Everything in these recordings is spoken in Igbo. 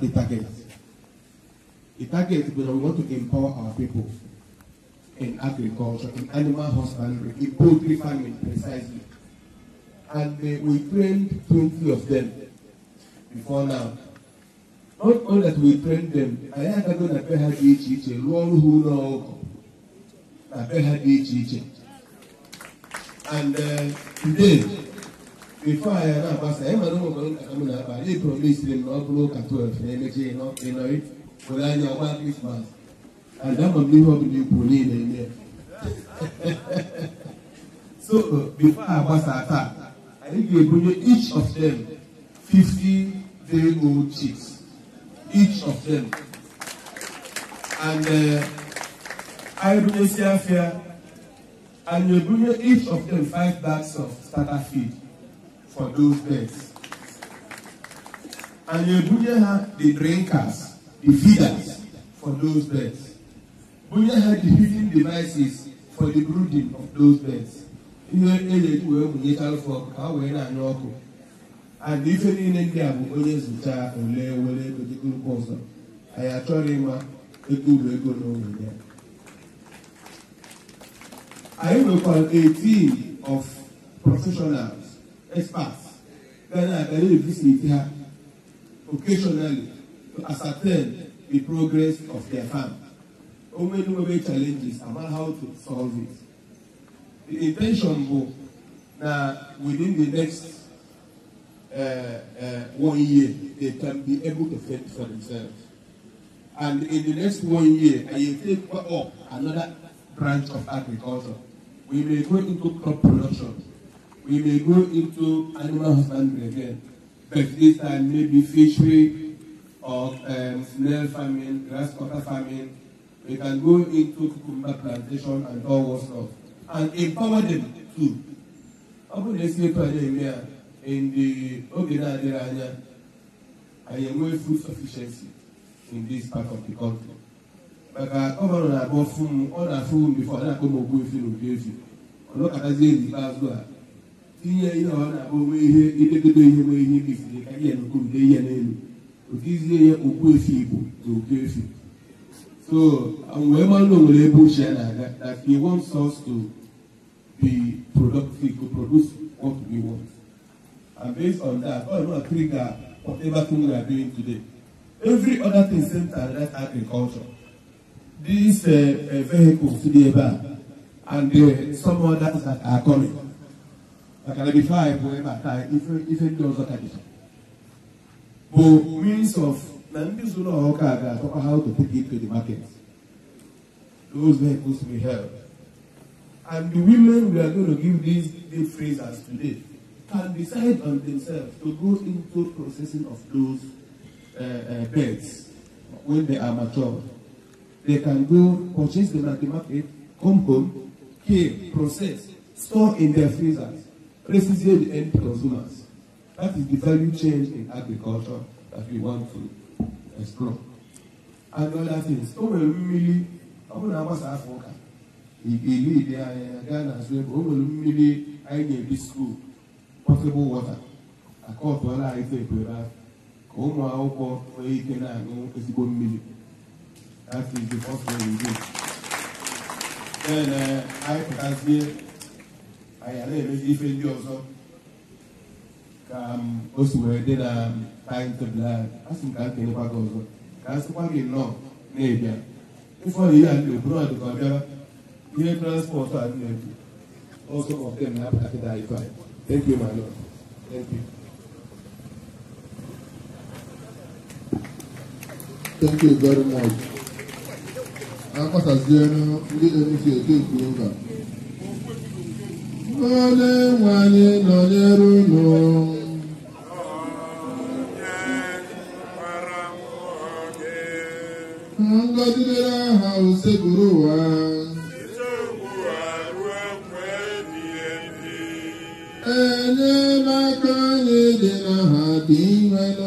the target. The target is that we want to empower our people in agriculture, in animal husbandry, in poultry farming precisely. And uh, we trained 20 of them before now. Not only that we trained them, anyị agago to be ha dị iche iche rụọ ọrụ ha ụlọ be ha dị And uh, today, before I ever pass, I ever know about Akamuna, but they promised them not to Katu, energy, not in it, for I know about Christmas. And that will be what we put in there. So, before I pass attack, I think they bring each of them 50 day old chicks. Each of them. And uh, I bring Siafia, and they bring each of them five bags of starter feed. for those birds. And you Bunye had the drinkers, the feeders for those birds. Bunye had the feeding devices for the brooding of those birds. And if you need any of onye zụta ole were ego dịgorokwa ọzọ anyị achọghị ịma ego uru ego n'onwe I am a 18 of professionals experts that are going to visit here occasionally to ascertain the progress of their farm. many challenges about how to solve it. The intention was that within the next uh, uh, one year, they can be able to fend for themselves. And in the next one year, I will take up another branch of agriculture. We may go into crop production we may go into animal husbandry again, but this time maybe fishery or um, snail farming, grasshopper farming. We can go into cucumber plantation and all what stuff and empower them too. Ọ bụrụ na esi etu anyị eme a, in the oge na-adịghị anya, anyị enwee food sufficiency in this part of the country. maka gọvanọ na-agba ọfụ m ọ na-afụ m bifo ọ na-akpọ m ogbu efi na ogbu efi ọ nọkọtazie n'ikpeazụ a inye ihe ọ na-abụ onwe ihe idegodo ihe nwe ihe mebiri ka ihe n'okogide ihe n'elu otizie ya okpuefi igbo na okpuefi so wee mara onwere ebe uche ya na-aga that he wants us to be productive to produce what we want and based on that all of us three whatever thing we are doing today every other thing centered that agriculture these uh, uh, vehicles to the eba and uh, some others that are coming. bakala can be ife endowooza kabisa bu means of na ndị zụrụ means of how to take it to the market those vehicles will help and the women we are going to give these day phrase today can decide on themselves to go into processing of those uh, uh, beds when they are mature. They can go purchase them at the market, come home, kill, process, store in their freezers. Precisely the end consumers. That is the value change in agriculture that we want to explore. And other things. O nwere mmiri, ọ bụrụ na agbasa afọ ụka, ilu ide anya gaa na azụ ebe o nwere mmiri anyị na-ebi skuul, potable water, akọtụọla anyị tekwere afọ ka ụmụ akwụkwọ nwee ike na-aṅụ ezigbo mmiri. That is the first thing we do. Then uh, anyị pụtazie anyị anaghị emezi ife ndị ọzọ ka o si wee dị na timetable a asị m ka m kelekwa gị ọzọ ka a sịkwa gị nnọọ na-ebịa ife ọrụ ihe a ndị oburu ọdụ ka ọ bịara ihe transpọtụ a na-ebu ọzọ ọbụla na apụtakịta ife a thank you my lord thank you Thank you very much. Akọsazienu ndị NCA ekwu mba onye nwe anyị nọnyere unu ngọzi dịrị aha usekpuru ụwa enyemaka anyị dị n'aha dị imenụ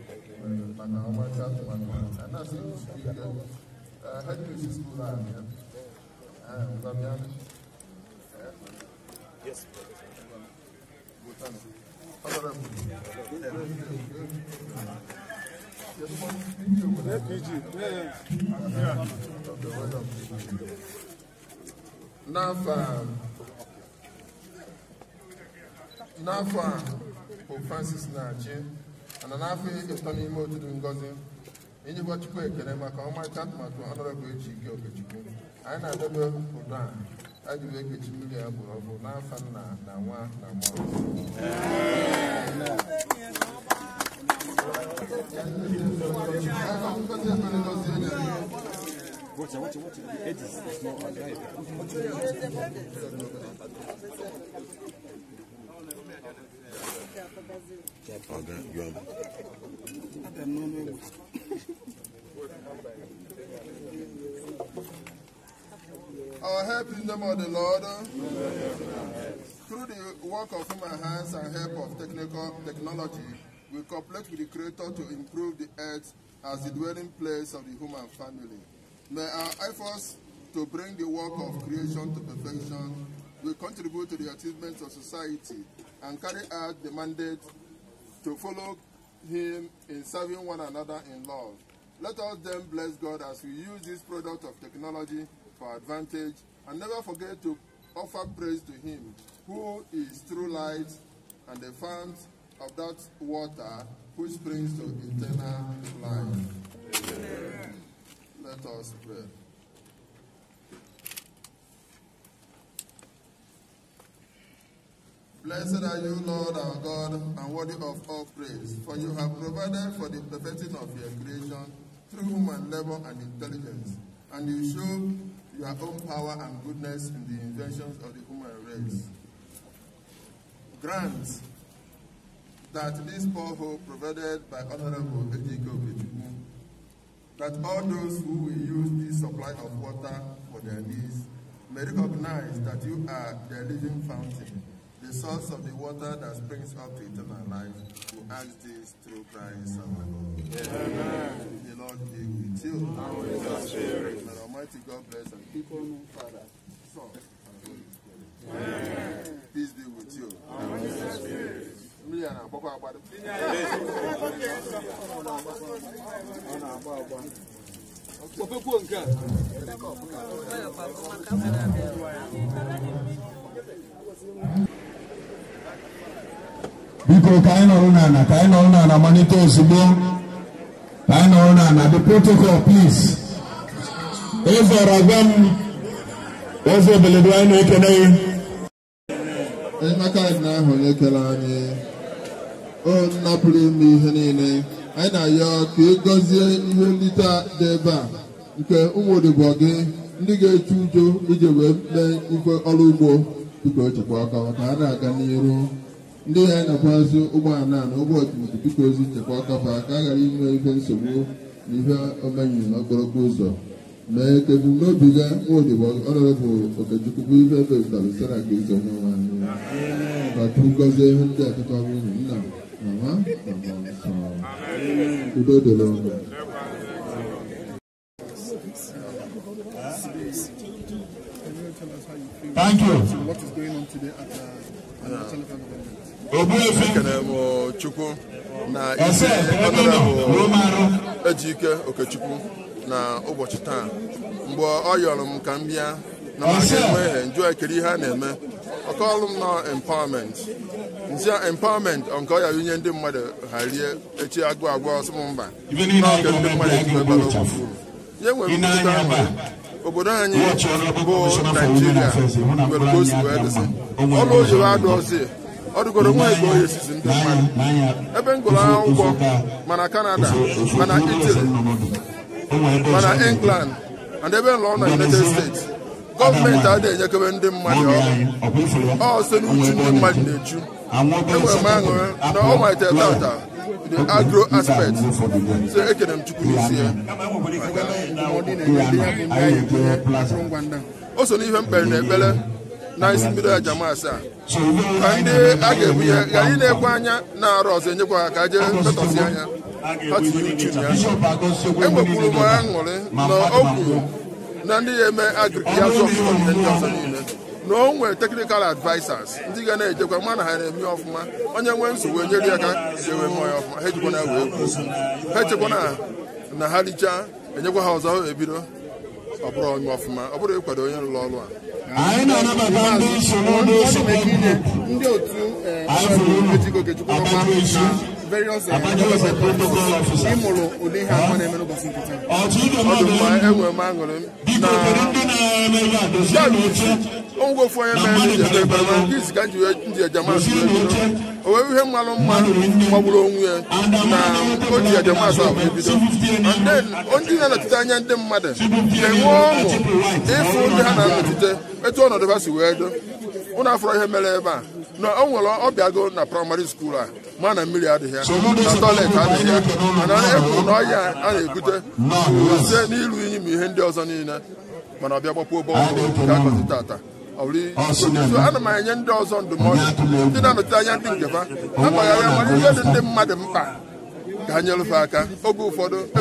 Manawamata to Manawamata. And I n'afa n'afa pope francis na-achị mana n'afọ iri n'ime otu ngozi inyekwa chukwu ekele maka ọmarịcha atụmatụ ọnọrọbụ eji ike okechukwu anyị na-adebe ụdọ a anyị wee kechi mmiri ya gburu ọgwụ n'afọ nna na nwa na mmụọ Ọ̀gá yọ ọmọ. Our help is in the name of the Lord. Through the work of human hands and help of technical technology, we cooperate with the Creator to improve the earth as the dwelling place of the human family. May our efforts to bring the work of creation to perfection will contribute to the achievements of society and carry out the mandate to follow him in serving one another in love. Let us then bless God as we use this product of technology for advantage and never forget to offer praise to him who is true light and the fount of that water which brings to eternal life. Amen. Let us pray. Blessed are you, Lord our God, and worthy of all praise, for you have provided for the perfecting of your creation through human labor and intelligence, and you show your own power and goodness in the inventions of the human race. Grant that this poor hope provided by Honorable Ejiko Kichimu, that all those who will use this supply of water for their needs may recognize that you are their living fountain the source of the water that springs up to eternal life, We ask this through Christ our Lord. Amen. The Lord be with you. And with your spirit. May Almighty God bless and keep on, Father, Son, and Holy Spirit. Amen. Peace be with you. And with your spirit. kwuru ka anyị nọrọ n'ala ka anyị nọrọ n'ala malite ozugbo ka anyị nọrọ n'ala the protocol please ịzọrọ agwa m eze beledu anyị na-ekele gị ịmaka anyị ahụ onye kere anyị o napụrụ ime ihe niile anyị na-ayọ ka ị gọzie ihe nlite dị ebe a nke ụmụ odibo gị ndị ga-echu ujo iji wee mee ife ọrụ ugbo biko chekwa ọkọ ka ha na-aga n'iru ndị ha na azụ ụgbọala na ụgbọ otutu biko ozi nchekwa ọkafa ka a ghara inwe ihe nsogbu na ihe omenyi na ụzọ mee ka ebumnobi ga nwaodibo ọnọdụbụ okechukwu bụ ihe ebezụtara ezi onye ndị akụkọ nwunye nna mama udo ọnụ Thank you. What is going on today at uh, ekele m chukwu na isi ekpere bụ ejike okechukwu na ụbọchị taa mgbe ọ yọrọ m ka m bịa na maka enweghị njụ ekiri ihe a na-eme ọkọọlụ m na empowerment nzia empowerment nke ọya unye ndị mmadụ ha rie echi agụ agwọ ọsọ m mba n'oge ndị mmadụ ejiwegbara okwu nye nwere mpụta nwere obodo anyị bụ naijiria nwere ka o si wee dịsị ọrụ oyiwe adụ ọzi ọ dụgoro nwa igbo esizi ndị mmadụ ebe m gụrụ akwụkwọ mana kanada mana itali mana England and ebe nlọ na United States gọọmenti adịghị enyekebe ndị mmadụ ọrụ ọ site n'uchu ndị mmadụ na-echu enwere m aṅụrị na ọ malitere tata the agro aspect so ekere m chukwu n'isi ya o so n'ihe m kpere na ekpere n'isi mmiri aja maasị a ka ndị a ga-egbu ya ka anyị na-ekwe anya na-arụ ọzọ enyekwa ha ka jee metọsi anya ha tiri uchu ya enwekwuru m aṅụrị na o kwuru na ndị ga-eme agriki ya zụ ọfụma ihe ndị ọzọ niile na o nwere teknikal advisers ndị ga na-ejekwa ma na ha na-eme ọfụma onye nwee nsogbu enyere ya aka ewe mmụọ ya ọfụma ha ejikwa na wee kwuo ha echekwa na ha richaa enyekwa ha ọzọ ebido ọ bụrụ onye ọfụma ọ bụrụ ịkwado onye rụrụ ọrụ a anyị na-anabata ndị so n'ụlọ osote ndị otu Aịfụrụ unu Abakaliki various mụrụ ụdị ihe abụọ na-eme n'ụbọchị nkịtị enwere m aṅụrị ma mma onwe ya na o ji ejamas ahụ ebido ndị na-anọchite anya ndị mmadụ na-enwe ọṅụ ịfụ ndị ha na-anọchite etu ọnọdụ ha si wee do ụnụ afọrọ ihe mere ebe a na o nwere ọbịago na praịmarị skuul a ah. ma na mmiri adịghị ya na tọilet adịghị ya mana ekwuru na ọhịa a na-ebute site n'ịrụ iyi ma ihe ndị ọzọ niile mana ọbịa gbakpuo bọọlụ ka akọzi tata ana m enye ndị ọzọ ndụmọdụ ndị na-anọte anya ndị ihe dị ndị mmadụ mkpa ka ha nyelụfe aka oge ụfọdụ e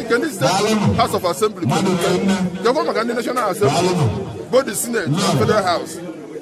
nke ndị steeti House of Assembly maka ndị National Assembly Senate na Federal House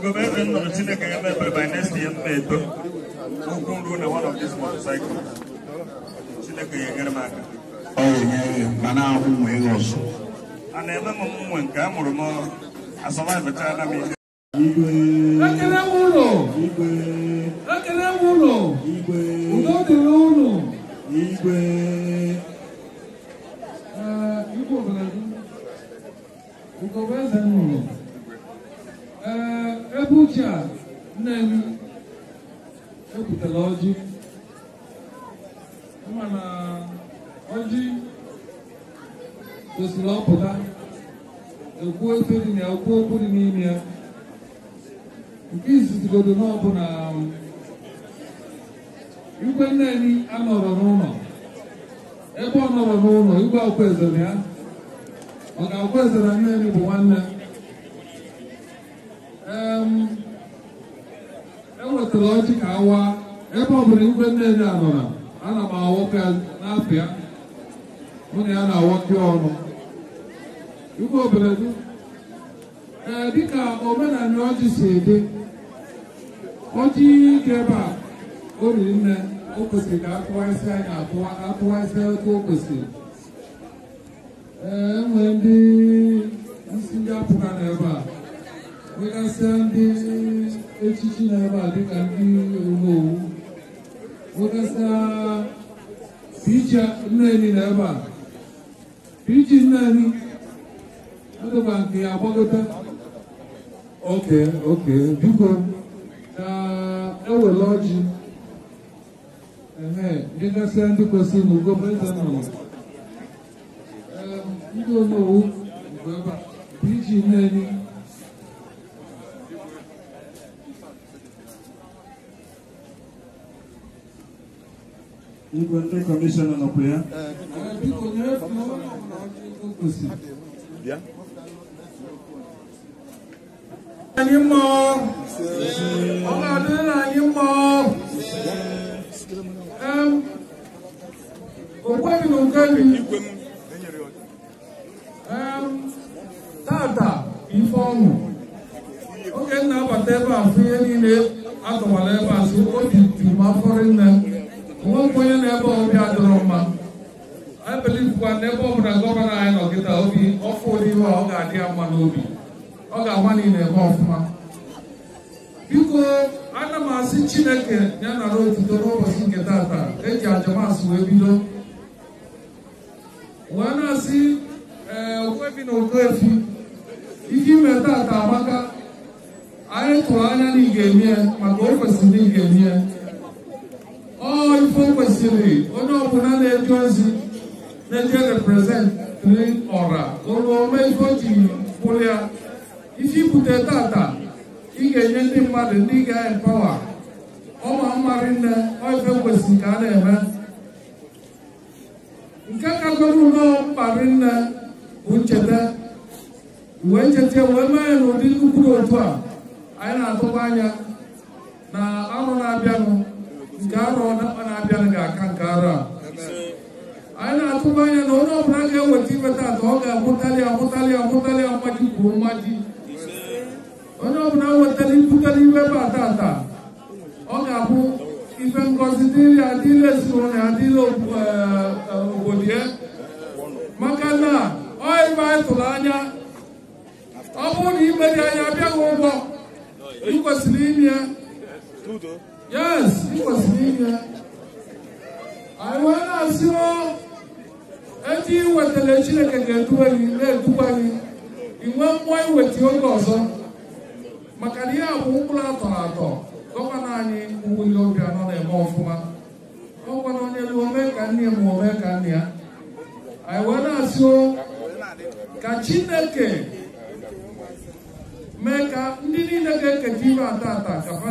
Gọvanọ nnụnụ Chineke ya mebere by next year m na-eto na one of these motorcycle. Chineke ya enyere m Ọ na-ahụ ụmụ ihe A na-eme m mụnwe nke a mụrụ m asọvaivachaala m ihe. Ekele ụlọ! Ekele ụlọ! Udo dịrị ụlọ! Igwe! Igwe obodo ee uche a nne m epụtara ọjị mana ọjị kwesịrị ọpụta ekwu efe dị na ya okwu okwu dị n'ime ya nke izizigodo n'ọbụla igwe nneni anọrọ n'ụlọ ebe ọ nọrọ n'ụlọ igwe ọkwa ezere ya ọ ga-akwa ezere nneni bụ nwanne enwetara ọjị ka awa ebe ọ bụla igwe nnene anọra ana m awọka n'apịa mụ na ya na-awọke ọnụ igwe oberedu ee dịka omenala ọjị si dị ọjị dị ebe a o riri nne o kwesịrị ka akụwasị anya akụwasị otu o kwesịrị ee enwere ndị isi ndị apụga n'ebe a Minasa ndị echichi na-aba dịka ndị omewu nwekasa picha nneni na ebe a pichi nneni adịkwa nke agbagota oke oke biko ka ewere ọjị ehe dịgasị ndị kwesịrị n'ugo eze nnọrọ ndị omewu mgbe ebe a pichi nneni Inventory commission on prayer. Bien. Ani mọ, ọmọ adé náà ni mọ, òkú ẹni ló ń kẹ́lu, tààtà ìfọ̀mù, ó kẹ́ ní abàtẹ́ bá fi ẹni lé, àtọ̀wàlẹ́ bá sí, ó di tìmọ̀ afọ́rí náà. nwekwụ onye na-ebe obi adịrọ mma anyị na n'ebe ọbụla gọvanọ anyị nọ obi ọfụ ụdị iwe ọ ga-adị mma n'obi ọ ga-agba niile ebe ọfụma biko ana m asị chineke ya nara otuto n'ụbọchị nke tata eji ajamasị wee bido wee na-asị ee eh, okwefi na okoefi ike ime tata amaka anyị tụrụ anya na ị ga-emie maka o kwesịrị na ị ga-emie ife kwesịrị onye ọbụla na-eje ozi na-eje reprezentri ọra ome ife o ji pụrụ ya isi bute tata ị ga-enye ndị mmadụ ndị ga-epawa ọma mmarị nne ife kwesịrị ka a na-eme nke kagoro ụlọ mkparị nne bụ ncheta wee cheta wee mee n'ụdị nnukwu otu a anyị na-atụba anya na arụ na-abịanụ garo na bana bianga kan kara ana tuba ya no no branga wati bata toga mutali mutali mutali amaji kumaji ono bna watali putali be bata ta oga bu ifen considere adile sone adile eh, eh, obodie eh. makana oi ba tulanya ọ bụrụ na imeri anya bịa ụgwọ ikwesịrị tudo Yes, he was here. Àwọn asirọ eti wetele Chineke ga-eduwe gị na of. gị inwe mmụọ iweta oge ọzọ maka na ihe bụ mkpụrụ atọrọ atọ gọvanọ anyị Uwile Obianọ na-eme ọfụma ọgwana onye lu omee ka nne ma omee ka nne ya anyị wee na-asị ka Chineke mee ka ndị niile ga-eketa ibe ata ata ka ha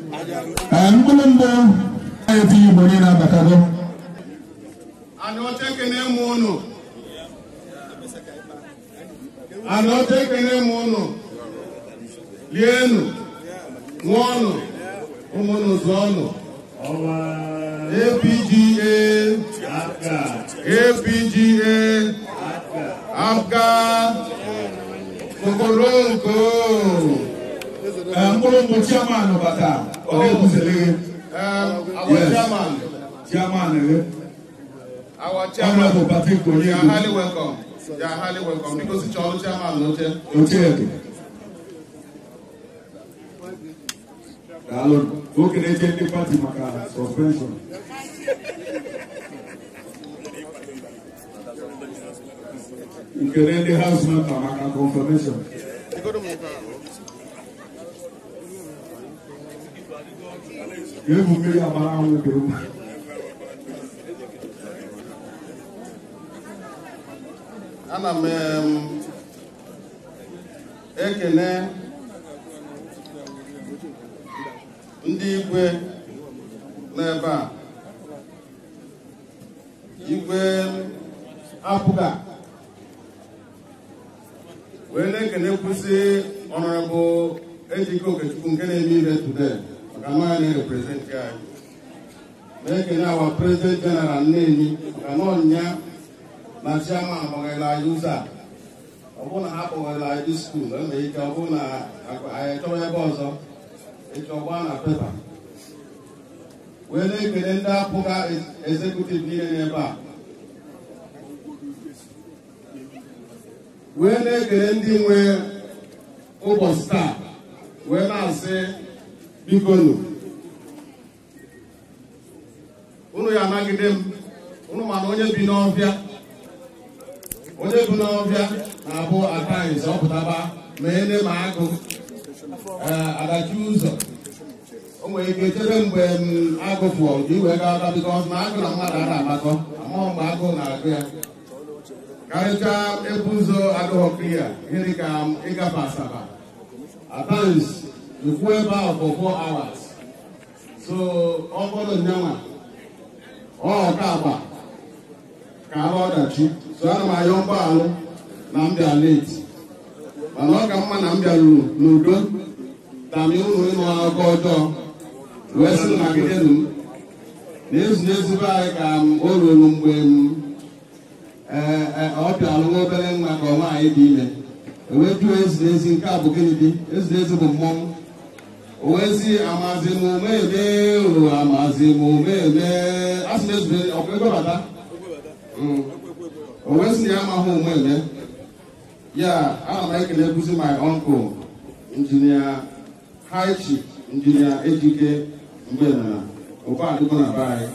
nkulumbo ayɛ fi igbo ni na-abata dɔ ana ɔte kene mu unu ana ɔte kene mu unu lienu ṅụọnụ ụmụnụ zụọnụ APGA APGA Afga Kokoronko mkpụrụ eh, mbụ Chiamanu bata Oyekusele. Oh, um, our yes. chairman. Chairman. Eh? Our chairman. Honorable Patrick Oyekusele. You are highly welcome. You are highly welcome because it's our chairman, no chair. No chair. Daalụ okenye eche ndị pati maka suspension. You Nkele ndị haus mata maka confirmation. You to egwu mmiri amara anwụ dị mma ana m ekele ndị igwe n'ebe a igwe apụga wee na ekene kwụsị ọrụ ọnọrọbụ ejike okechukwu nke na-eme ire today nke represent na-ereprezentị anyị na-ekene president general jeneral nnenyi na na chiama akpọghela anyị a ọ bụrụ na ike na ebe ọzọ ịchọ gbaa na pepa wee na-ekele ndị apụga ezekutiv niile n'ebe a wee na ndị nwe bikonu unu ya anagide m unu mana onye bi n'ọbịa onye bi n'ọbịa na-abụ ataiz ọpụtaba ma ene ma agụ eh, adachi ụzọ o nwere ike chebe mgbe m agụ fụọ nke iwe ga aga biko na agụ na mmadụ ara agbakọ amụọ mgbe agụ na-agụ ya karịchaa ebu ụzọ agụghọ klia gịnị ka ịgafe asaba ataiz nkwụ ebe ahụ for four hours so ọ bụrụ nyanwa ọ ka agba ka arụ ọdachi so ana m ayọ mgbaghalụ na m bịa leti mana ọ ka mma na m bịaruru n'udo tami ụlọ ịnụ akụkọ ọjọọ wee sị nagidenu m na ezu n'ezigbo anyị ka m o ruru mgbe m ọ bịalụ nwa obere nwa ka ọ anyị dị ime ewee jụọ ezi n'ezi nke a bụ gịnị dị ezi n'ezi bụ mmọnwụ owezi amazi m omeme o amazi m omeme asị na ezube ọkpebebata owezi mm. na ya amaghị omeme ya ana m ekele ekwuzi my uncle injinia haichi injinia ejike mgbe na ụkwadịgo na eh, be anyị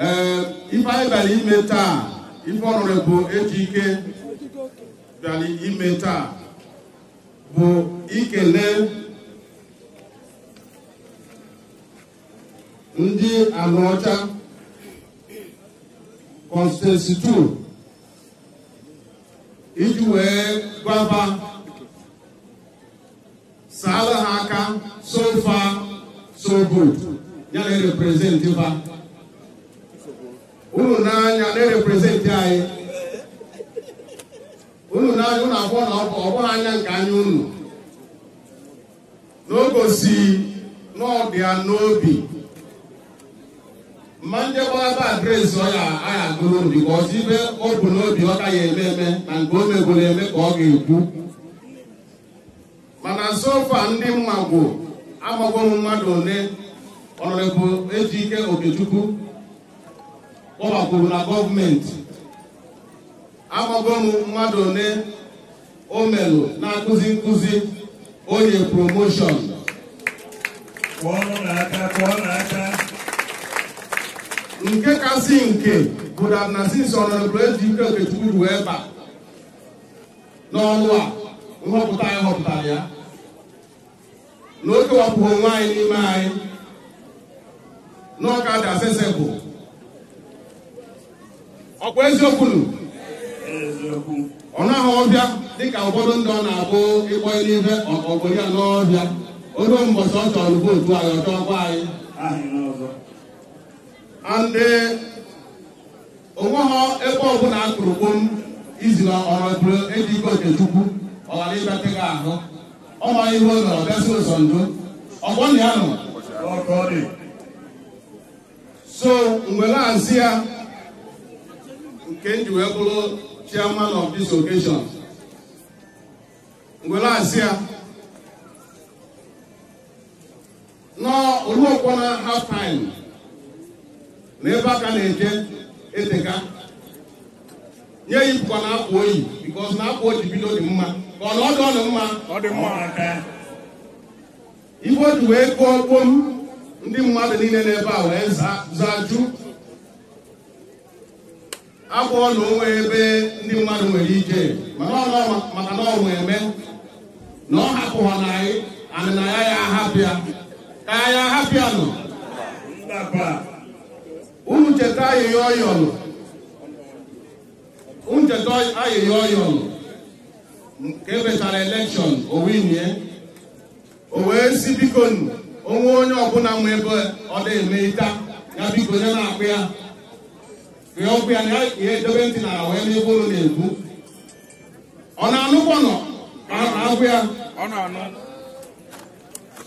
ee ife anyị bịara ime taa ife ọrụrụ bụ ejike bịara ime taa bụ ikele ndị anọcha konstituensitu iji wee gwaba saala ha aka so far so ya na-ereprezentị ba ụlọ n'anya na-ereprezentị anyị unu abụọ na ọ bụghị anya nke anya unu n'ogosi n'ọdị ya n'obi mma ndị gbalaba adreesị ọ ya agụrụ because ibe o bụ n'obi ọ ka ya eme eme na nke o megoro eme ka ọ ga-ekwu mana sofa ndị mmagwo amagwo m mmadụ ole ọnọdụ eji ike okechukwu kpọbakwuru na gọọmenti agbago m mmadụ ole o melụ na-akụzi nkụzi onye promoshọn nke kasị nke bụ na Francis Ọnọdụbụrụ Okechukwu ruo ebe a n'ọnụ a nhọpụta anyị họpụtara ya n'oge o kewapụghị onwe anyị n'ime anyị n'ọka dị asesebụ ọkwa eziokwu ọ naghị ọbịa dịka ụfọdụ ndị ọ na-abụ ịkpọ n'ibe ọka obodo ya n'ọbịa odo mbọchị ọ chọrọ vootu anyị ọ chọkwa anyị andị e, onweghọ ebe ọbụla akụrụ gbom izi na ọrọbụrụ ejiko ikpe chukwu ọ ghara ịbịata gị ahụ ọ ma ihe o nọrọ bịasị ụzọ ndo ọgbọ na ya nọ so mgbe na-asị ya nke m wee bụrụ chairman of this occasion ngwere asị ya n'oluokwo na half time na ebe aka na-eje eteka nye ya ipụkọ na akwụ oyi because na akwụ oji bido dị mma ka ọ na dị ọnụ mma ọ dị mma ife o wee kụọ gboo m ndị mmadụ niile n'ebe a wee zaa jụ abụọ na onwe ebe ndị mmadụ nwere ike mana maka na ọ eme na ọ hapụha na anyị anyị na ya ya ahapụ ka anyị ahapụ ya nọ unu cheta ayịya ọyọlụ unu cheta ayịya ọyọlụ nke emechara elekshọn o o wee si biko onwe onye ọbụla nwe ebe ọ dị eme ịta ya biko nye na-akpụ ya ihe ọkụ ya na ihe dobe ntị na wee n'ebe ụlọ na-ekwu ọ na-anụkwanụ anụkwa agwụ ya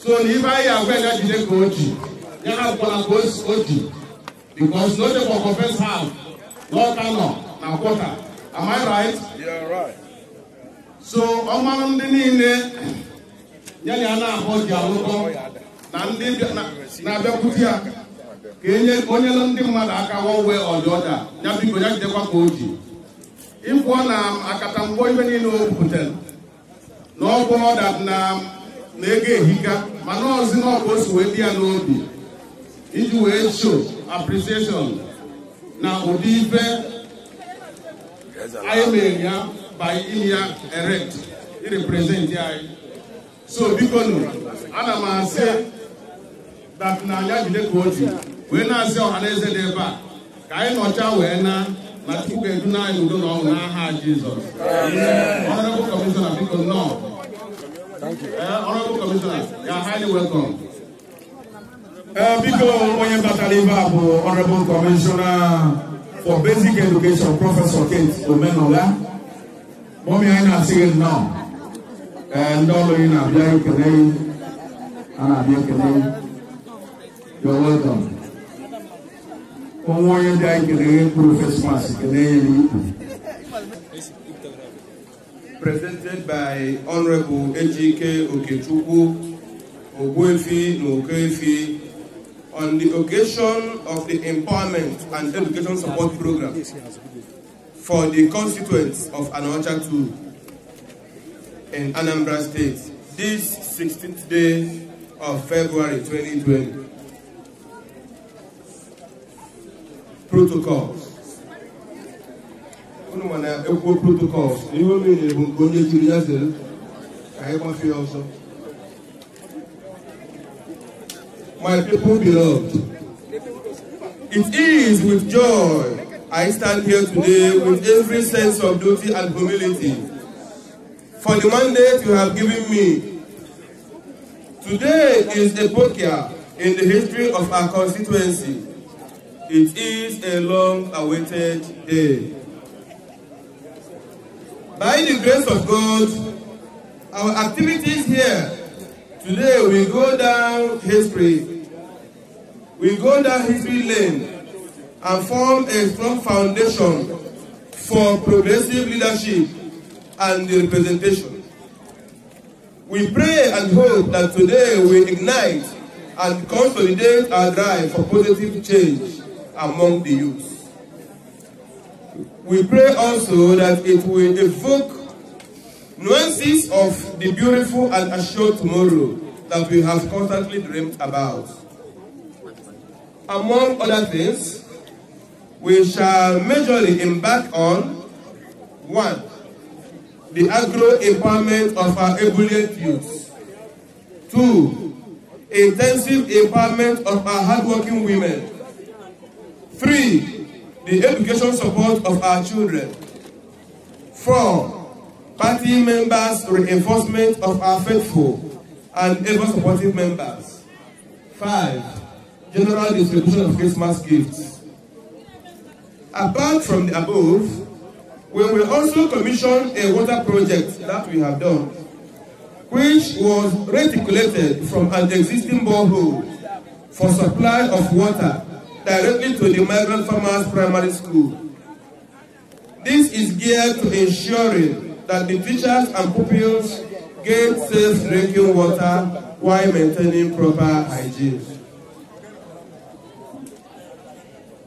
so na ibe anyị agwa ya jide ka o ji ya na akwụkwọla ka o ji because no dey for confess half lọta nọ na kwọta am I right? so ọmanụ ndị niile ya na ya na-ahụ ji alụkọ na ndị na-abịakwute ya E ka enye onye lụ ndị mmadụ aka one way or the other ya biko ya jidekwa e ka e o ji ịpụọ na akatamgbọ ibe niile o butere na ọgwụ ọda na ego ehika mana ọzi na ọbụ osi wee dị ya n'obi iji wee show appreciation na ụdị ife anyị mere ya by ime ya erect irepresent anyị so biko nụ ana m asị dat na anya jide ka o ji wee na-asị ọhaneze dị ebe a ka anyị nọcha wee na na chukwu edu na anyị udo na ọṅụ n'aha jizọs ọnọdụ kọmishọna biko nnọọ ọnọdụ kọmishọna ya haịlị welkọm biko onye batara ibe a bụ ọnọdụ Commissioner for basic education professor kate omenola mọmi anyị na-asị gị nnọọ eh, ndị ọrụ gị na-abịa ekele a na-abịa ekele welcome onye ndị anyị kere mkpụrụ fesmas kelee ya n'ikwu presented by honorable ejike okechukwu Ogwefi na on the occasion of the empowerment and education support program for the constituents of Anocha 2 in Anambra State this 16th day of February 2020. protocols unu ma na ekwuo protocols na ihe o mere bụ nke onye jiri also. my people beloved it is with joy I stand here today with every sense of duty and humility for the mandate you have given me. Today is a epoch in the history of our constituency. It is a long-awaited day. By the grace of God, our activities here today will go down history. We go down history lane and form a strong foundation for progressive leadership and the representation. We pray and hope that today we ignite and consolidate our drive for positive change among the youth. We pray also that it will evoke nuances of the beautiful and assured tomorrow that we have constantly dreamed about. Among other things, we shall majorly embark on one, the agro empowerment of our ebullient youth. Two, intensive empowerment of our hardworking women. Three, the education support of our children. Four, party members' reinforcement of our faithful and ever supportive members. Five, general distribution of Christmas gifts. Apart from the above, we will also commission a water project that we have done, which was reticulated from an existing borehole for supply of water directly to the migrant farmers primary school. This is geared to ensuring that the teachers and pupils get safe drinking water while maintaining proper hygiene.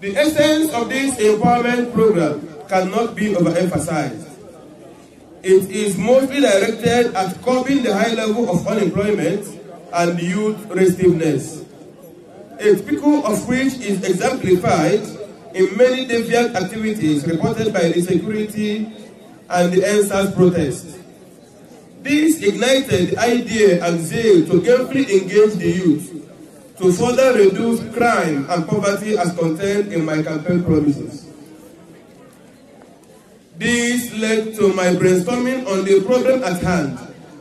The essence of this empowerment program cannot be overemphasized. It is mostly directed at curbing the high level of unemployment and youth restiveness a typical of which is exemplified in many deviant activities reported by the security and the NSAS protests. This ignited the idea and zeal to gainfully engage the youth to further reduce crime and poverty as contained in my campaign promises. This led to my brainstorming on the problem at hand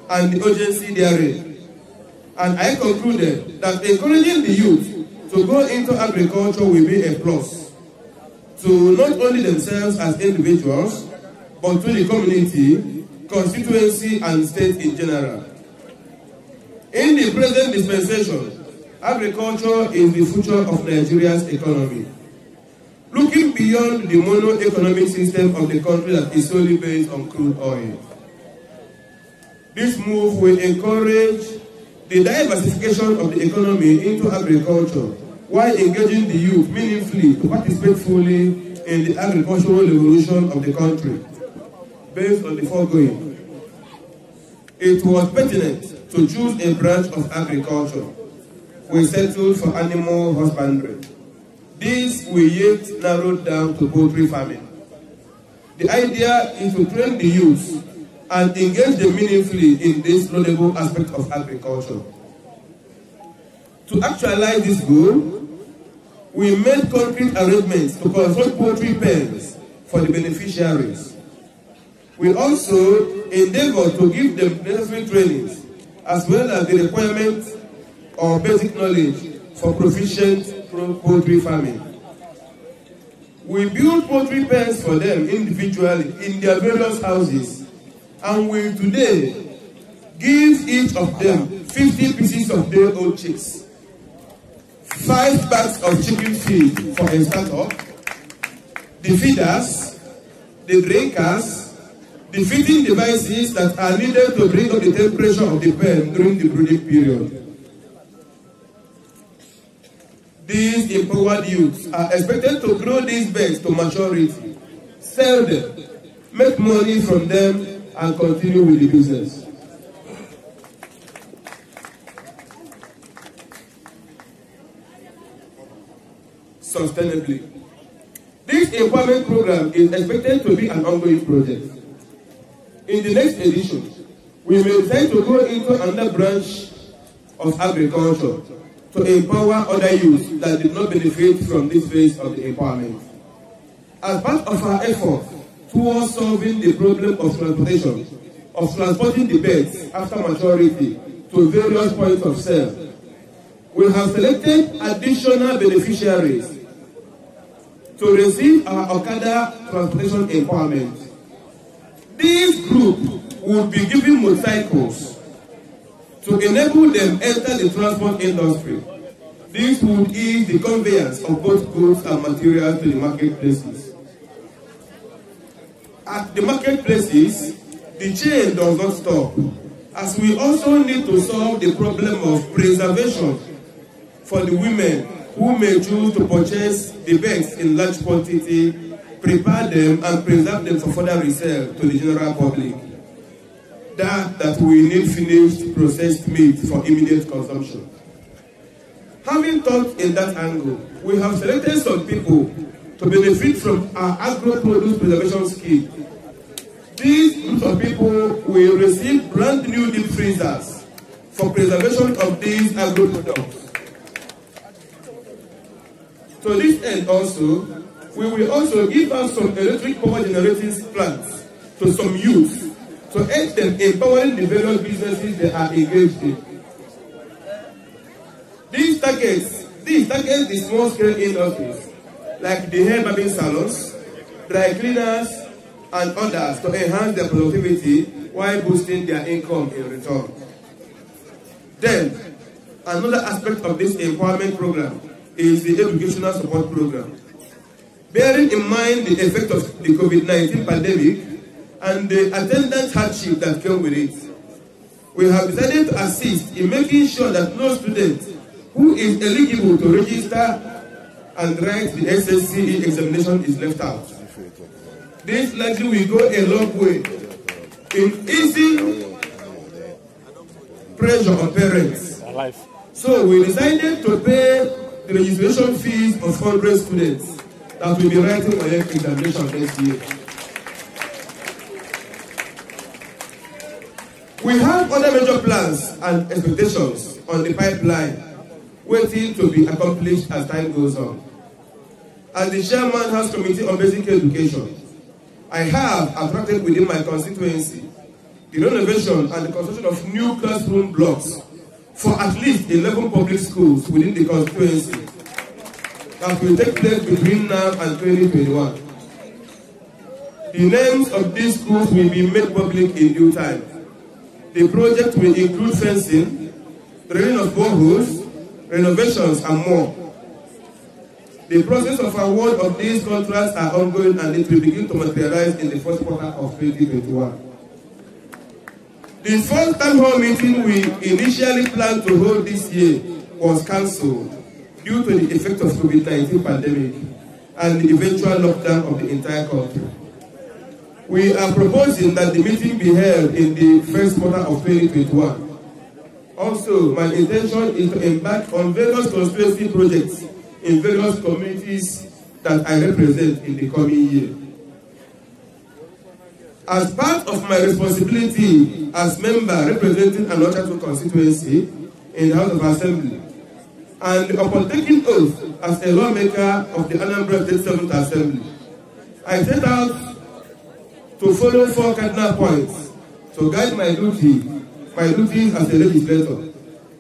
and the urgency therein. And I concluded that encouraging the youth to go into agriculture will be a plus to not only themselves as individuals, but to the community, constituency, and state in general. In the present dispensation, agriculture is the future of Nigeria's economy. Looking beyond the mono-economic system of the country that is solely based on crude oil. This move will encourage the diversification of the economy into agriculture while engaging the youth meaningfully to participate fully in the agricultural revolution of the country. Based on the foregoing, it was pertinent to choose a branch of agriculture. We settled for animal husbandry. This we yet narrowed down to poultry farming. The idea is to train the youth and engage them meaningfully in this noble aspect of agriculture. To actualize this goal, we made concrete arrangements to construct poultry pens for the beneficiaries. We also endeavored to give them necessary trainings as well as the requirements or basic knowledge for proficient poultry farming. We built poultry pens for them individually in their various houses and we today give each of them 50 pieces of their old chicks five bags of chicken feed for a startup, the feeders, the breakers, the feeding devices that are needed to bring up the temperature of the pen during the breeding period. These empowered youths are expected to grow these birds to maturity, sell them, make money from them, and continue with the business. sustainably. This empowerment program is expected to be an ongoing project. In the next edition, we may tend to go into another branch of agriculture to empower other youths that did not benefit from this phase of the empowerment. As part of our efforts towards solving the problem of transportation, of transporting the beds after maturity to various points of sale, we have selected additional beneficiaries to receive our Okada Transportation Empowerment. This group will be giving motorcycles to enable them enter the transport industry. This would ease the conveyance of both goods and materials to the marketplaces. At the marketplaces, the chain does not stop, as we also need to solve the problem of preservation for the women who may choose to purchase the bags in large quantity, prepare them and preserve them for further resale to the general public. That, that we need finished processed meat for immediate consumption. Having thought in that angle, we have selected some people to benefit from our agro-produce preservation scheme. These groups of people will receive brand new deep freezers for preservation of these agro-products. To this end also, we will also give out some electric power generating plants to some youth to help them empowering the various businesses they are engaged in. These targets, these targets the small scale industries like the hair barbing salons, dry cleaners, and others to enhance their productivity while boosting their income in return. Then, another aspect of this empowerment program is the educational support program. Bearing in mind the effect of the COVID-19 pandemic and the attendance hardship that came with it, we have decided to assist in making sure that no student who is eligible to register and write the SSCE examination is left out. This likely will go a long way in easing pressure on parents. So we decided to pay registration fees of 100 students that will be writing WAEC examination next year. We have other major plans and expectations on the pipeline waiting to be accomplished as time goes on. As the chairman has committee on basic education, I have attracted within my constituency the renovation and the construction of new classroom blocks for at least 11 public schools within the constituency that will take place between now and 2021. The names of these schools will be made public in due time. The project will include fencing, training of boreholes, renovations, and more. The process of award of these contracts are ongoing and it will begin to materialize in the first quarter of 2021. The first town hall meeting we initially planned to hold this year was cancelled due to the effect of COVID-19 pandemic and the eventual lockdown of the entire country. We are proposing that the meeting be held in the first quarter of 2021. Also, my intention is to embark on various constituency projects in various communities that I represent in the coming year. As part of my responsibility as member representing an Ochatu constituency in the House of Assembly, and upon taking oath as a lawmaker of the Anambra State 7 Assembly, I set out to follow four cardinal points to guide my duty, my duties as a legislator.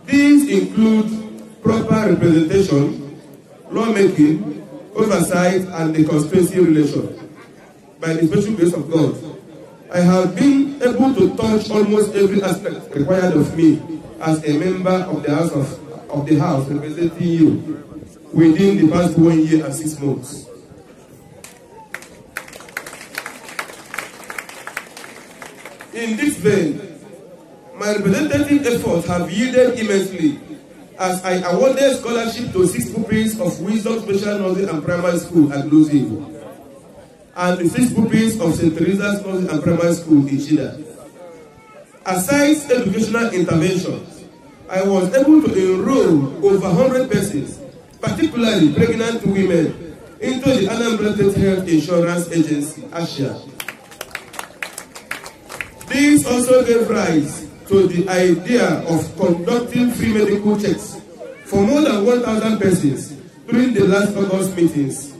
These include proper representation, lawmaking, oversight, and the constituency relation by the special grace of God. I have been able to touch almost every aspect required of me as a member of the House of, of the House representing you within the past one year and six months. In this vein, my representative efforts have yielded immensely as I awarded scholarship to six pupils of Wisdom Special Nursing and Primary School at Losing and the six pupils of St. Teresa's College and Primary School in Shida. Aside educational interventions, I was able to enroll over 100 persons, particularly pregnant women, into the Anambra Health Insurance Agency, ASHA. This also gave rise to the idea of conducting free medical checks for more than 1,000 persons during the last August meetings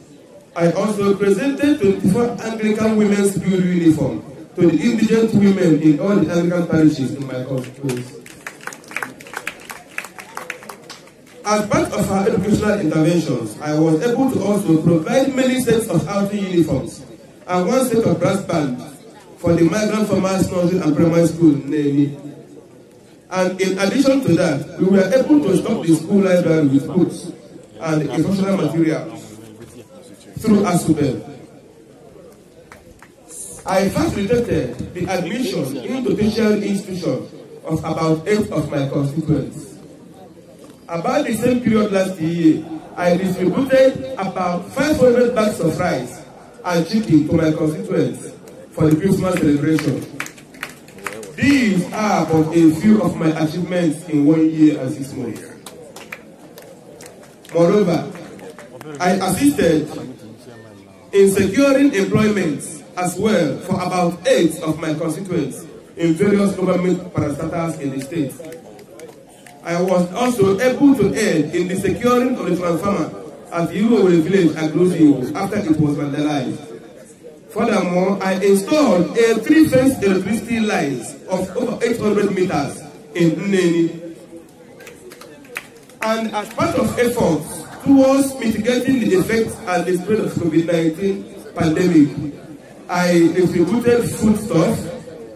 I also presented 24 Anglican women's blue uniform to the indigent women in all the Anglican parishes in my constituency. As part of our educational interventions, I was able to also provide many sets of outing uniforms and one set of brass bands for the migrant farmers nursery and primary school namely. And in addition to that, we were able to stock the school library with books and instructional materials. through ASCOBEL. I first rejected the admission into tertiary institution of about eight of my constituents. About the same period last year, I distributed about 500 bags of rice and chicken to my constituents for the Christmas celebration. These are but a few of my achievements in one year and six months. Moreover, I assisted in securing employment as well for about eight of my constituents in various government parastatals in the state. I was also able to aid in the securing of the transformer at Euroway Village at after it was vandalized. Furthermore, I installed a three-phase electricity lines of over 800 meters in Nneni. And as part of efforts towards mitigating the effects and the spread of COVID-19 pandemic. I distributed foodstuffs,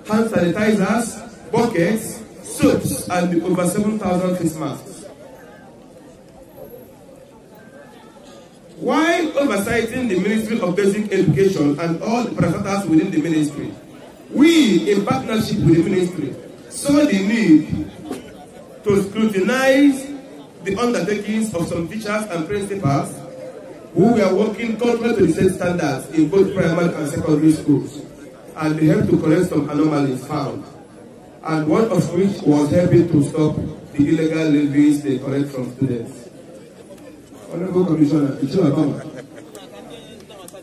hand sanitizers, buckets, soaps, and over 7,000 face masks. While overseeing the Ministry of Basic Education and all the parastatals within the ministry, we, in partnership with the ministry, saw the need to scrutinize the undertakings of some teachers and principals who were working contrary to the state standards in both primary and secondary schools, and they helped to correct some anomalies found, and one of which was helping to stop the illegal levies they collect from students. Honorable Commissioner, it's your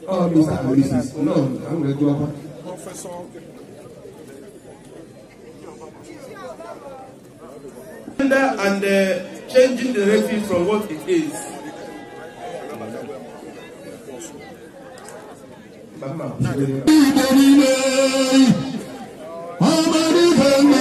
Oh, Mr. Mrs. No, I'm going to go up. Professor. And uh, changing the refuge from what it is. ọmọdé fẹ́mi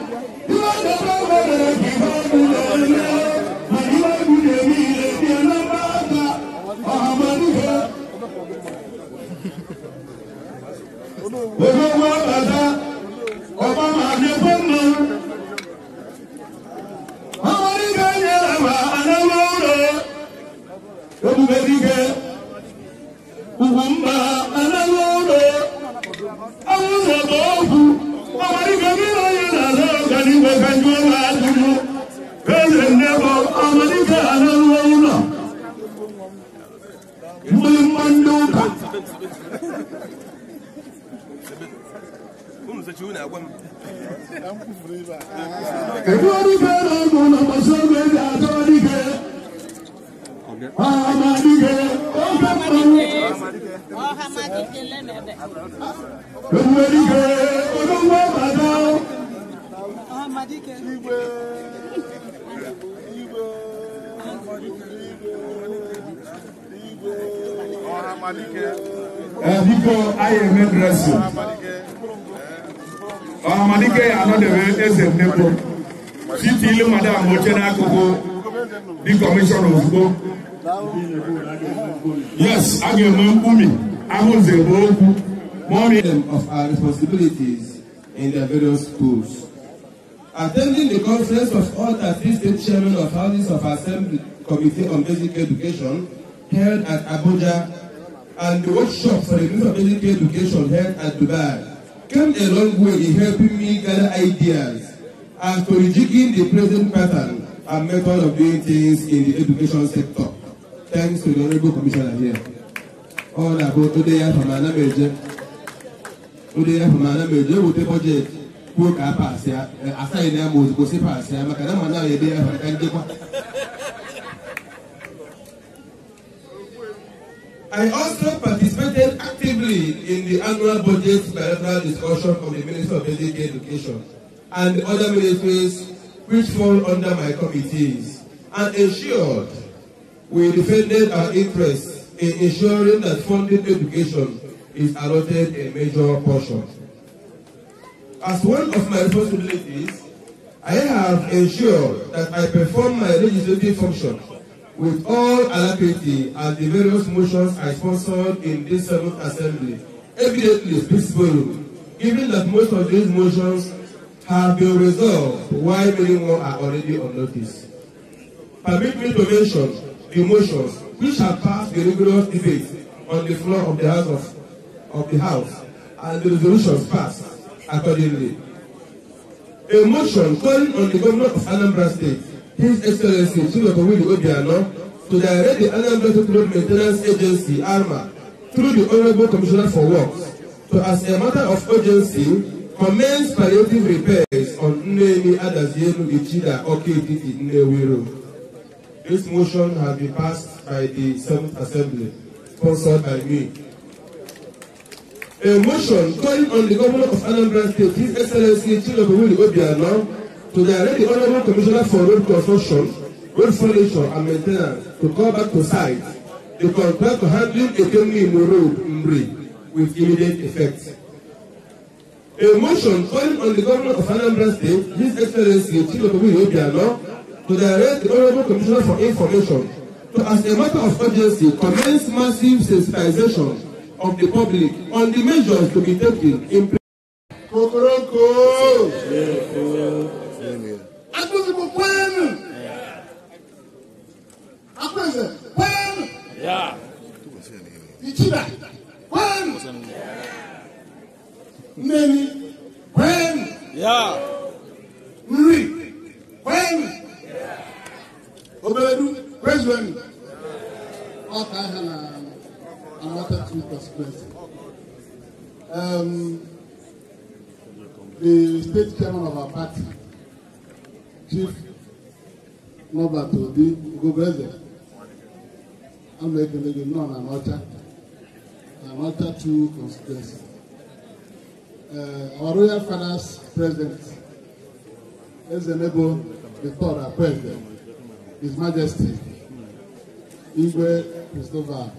olówó bàbá ọba máa ní fóònù. ọmọ nígbà yẹn làwọn àlọ́ wọ́ọ́rọ̀ ebùbẹ́ nígbà. بنت بنت بنت هم زجون أقوم Kedori bẹ̀rẹ̀ ọ̀gbọ̀n ọ̀pọ̀sọ̀ méjì àtọ́dígẹ̀. biko anyị eme dresi ọhamalike ya anọdebe eze mmekpo titi ilu madam oche n'akụkụ dị kọmishọn ozugbo yes a ga-enwe mkpumi ahụze bụ okwu Morning of our responsibilities in the various schools. Attending the conference of all 13 state chairmen of houses of assembly committee on basic education held at Abuja and the workshop for the Minister of Military Education held at Dubai came a long way in helping me gather ideas as to rejigging the present pattern and method of doing things in the education sector. Thanks to the Honorable Commissioner here. All about today from another major. Today from another major with the budget. Work up as a sign them eh, was possible. I'm a kind of man now. Eh, I also participated actively in the annual budget bilateral discussion of the Minister of Basic Education and other ministries which fall under my committees and ensured we defended our interests in ensuring that funding education is allotted a major portion. As one of my responsibilities, I have ensured that I perform my legislative function with all alacrity at the various motions I sponsored in this seventh assembly, evidently speaks volume, given that most of these motions have been resolved while many more are already on notice. Permit me to mention the motions which have passed the rigorous debate on the floor of the House of, of the House and the resolutions passed accordingly. A motion calling on the governor of Anambra State His Excellency Chilobawilu Obiano, to direct the Anambra State Road Maintenance Agency, ARMA, through the Honorable Commissioner for Works, to, as a matter of urgency, commence palliative repairs on Nnemi Adazielu Ichida Okititi Nnewi Road. This motion has been passed by the 7 Assembly, sponsored by me. A motion calling on the Governor of Anambra State, His Excellency Chilobawilu Obiano, to direct the Honourable Commissioner for Road Construction, Road Furniture and Maintenance to come back to site to contract to handling Ekemi Imo Road, Mri, with immediate effect. A motion calling on the Governor of Anambra State, His Excellency Chief Chilokobu Obiano, to direct the Honourable Commissioner for Information to, as a matter of urgency, commence massive sensitization of the public on the measures to be taken in. Kokoroko. Yeah, yeah akpọsibụ kwenu akpọsibụ kwenu ichiba kwenu mmeri kwenu nri kwenu obedu kwezuenu ọka aha na amata two consequences. Um, the state chairman of our party chief nọba Obi Ugogbe Eze ama ekele gị nọ na Anọcha na Anọcha two constituency eh, our royal finance president Ezenebo Victor Akweze His Majesty Igwe Christopher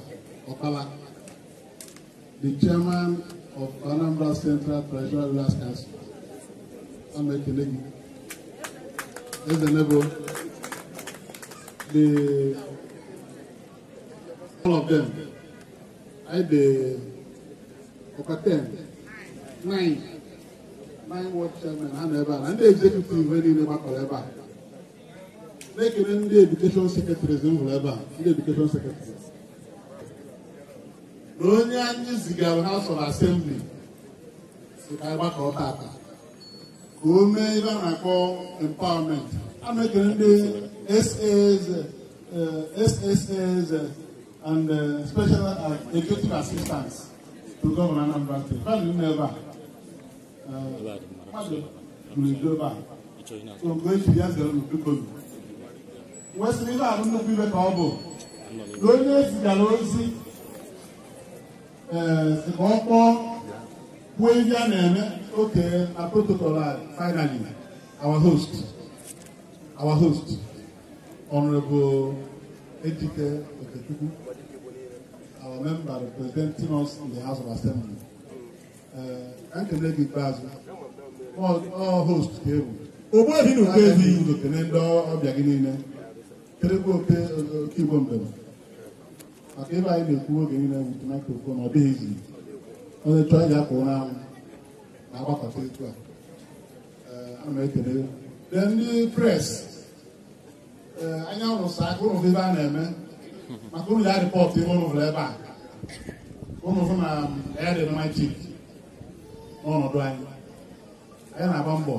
Okala the chairman of Anambra Central Treasury Last Council ama ekele gị Ezenebo, the all of them, I the Okaten, nine, nine ward chairman, and and the executive very never forever. Make an in the education secretary, whoever, the education secretary. Onye anyị zigara House of Assembly, si ka anyị gbakọ ọta ome ibe a na-akpọ empowerment eh, a na-ekele ndị sas and eh, special eh, executive assistants to gọvanọ Anambra steeti mmadụ nọ ebe a mmadụ gburu ebe a so mgbe eji ya zere unu biko nwesịrị ibe ahụ nnukwu ibe ka ọ bụ na onye zigara ozi ee ka ọ kpọọ Wavia Neme, okay, a protocol, finally, our host, our host, Honorable Ejike Oketuku, our member representing us in the House of Assembly. Uh, Nkelegi Bazu, all, all hosts table. Ogbo ebi n'oke ezi. Aka ndị okene ndị ọbịa gị niile. Kelegbu oke oke Igbo mbem. Maka ebe anyị na-ekwu oge niile bụ tomato ọ dịghị izu. onye chọọ ya ka ụra anwụ na-agbakọta etu a ana m ekele dee ndị pres anya rụsa aka ụnụ ebe a na-eme maka ụnụ ya rịpọtụ ebe ụnụ hụrụ ebe a ụnụ hụ na um, ya dị machik n'ọnọdụ anyị anyị na-agba mbọ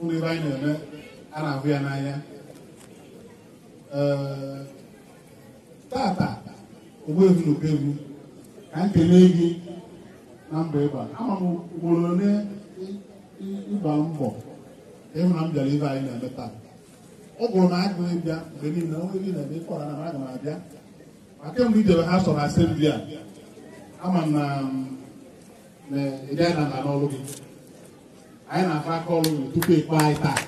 ụnụ ebe anyị na-eme a na-ahụ ya n'anya Ee tata ogbuevu na okegwu ka m kelee gị na mba ịba ama m ugboro ole ịba mbọ ịhụ na m bịara ibe anyị na-eme taa ọ bụrụ na agụghị bịa mgbe niile onwe gị na-eme ịkọrọ na aga m abịa ma kemgbe idebe ha sọ na asembli a ama m na ị gaghị na ala n'ọrụ gị anyị na-akọ aka ọrụ gị tupu ịkpọ anyị taa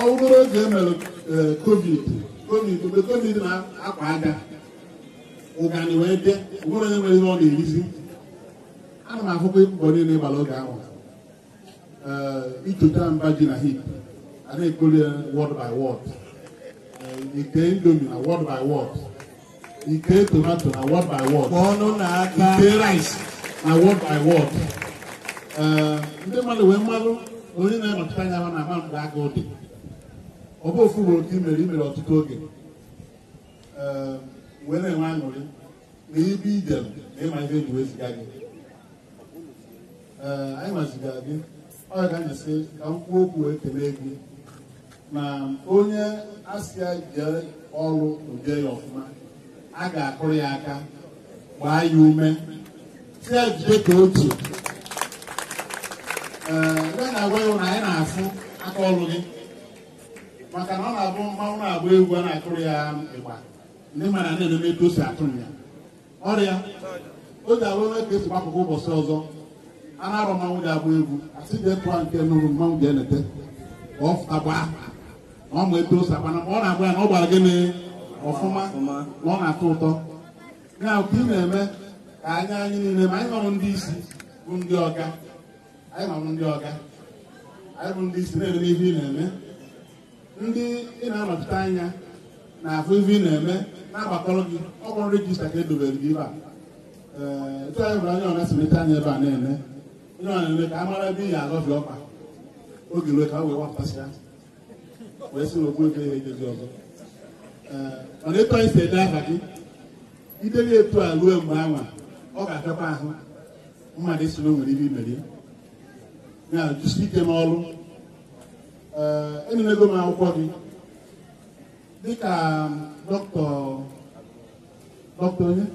ọ bụrụ oge e mere eh, covid covid mgbe covid na-akwa aga ụgani wee dị onwere onye nwere ihe ọ na-erizi ana m ahụkwa ịkpụkpọ niile ịgbara oge ahụ itota mba ji na hip a na-ekpoli ya word by word ike indomi na word by word ike tomato na word by word ike rice na word by word ndị mmadụ wee mmadụ onye na-anọchite anya ha na-ama mgbe agụụ dị ọ bụ ofu ugboro ka i mere ọtụtụ oge wee na-enwe aṅụrị na ibe ide na ịma ihe eji weziga gị ee anyị maziga gị ọ ga anyasị ka m kwuo okwu wee kelee gị na onye asịa jee ọrụ ude ya ọfụma a ga-akụrụ ya aka gbaa ya ume si ya jide ka otu ee ndị na-agwa ịhụ na anyị na-afụ aka ọrụ gị maka na ọ na-abụ mmanwụ na-agba egwu a na-akụrụ ya ịgba ndị mara na enome etu si atụ ya ọrịa o ji arụ onwe ka esi gbapụkwa ụbọchị ọzọ a na-arụ mmanwụ ga-agba egwu asị dị etu a nke nụrụ mmanwụ ga-enete ka ọ fụtakwa na ọ ma etu o si akwana ma ọ na-agba ya na ọ gbara gịnị ọfụma na ọ na-atọ ụtọ ya ka ị na-eme ka anya anyị niile ma anyị nọrụ ndị isi bụ ndị ọga anyị nọrụ ndị ọga anyị bụ ndị isi na-eme ihe ị na-eme ndị ị na-anọchite anya na-afụ ife ị na-eme na-agbakọrọ gị ọkpọrọ rejista ka edobere gị ebe a ee bụ onye ọna simeta anya ebe a na-eme onye ọ na-eme ka a mara ebe ị ya agọfie ọkpa oge ruo ka a wee wapụtasịa wee sị na okwu ego ihe ejezi ọzọ ee mana ịtọ isi ede aha gị ideli etu a ruo mgbe anwa ọ ga-afịakwa ahụ mmadụ esi na o nwere ibe imeri ya jisi ike n'ọrụ ee enyelego m akwụkwọ gị dịka dọkịta dọkịta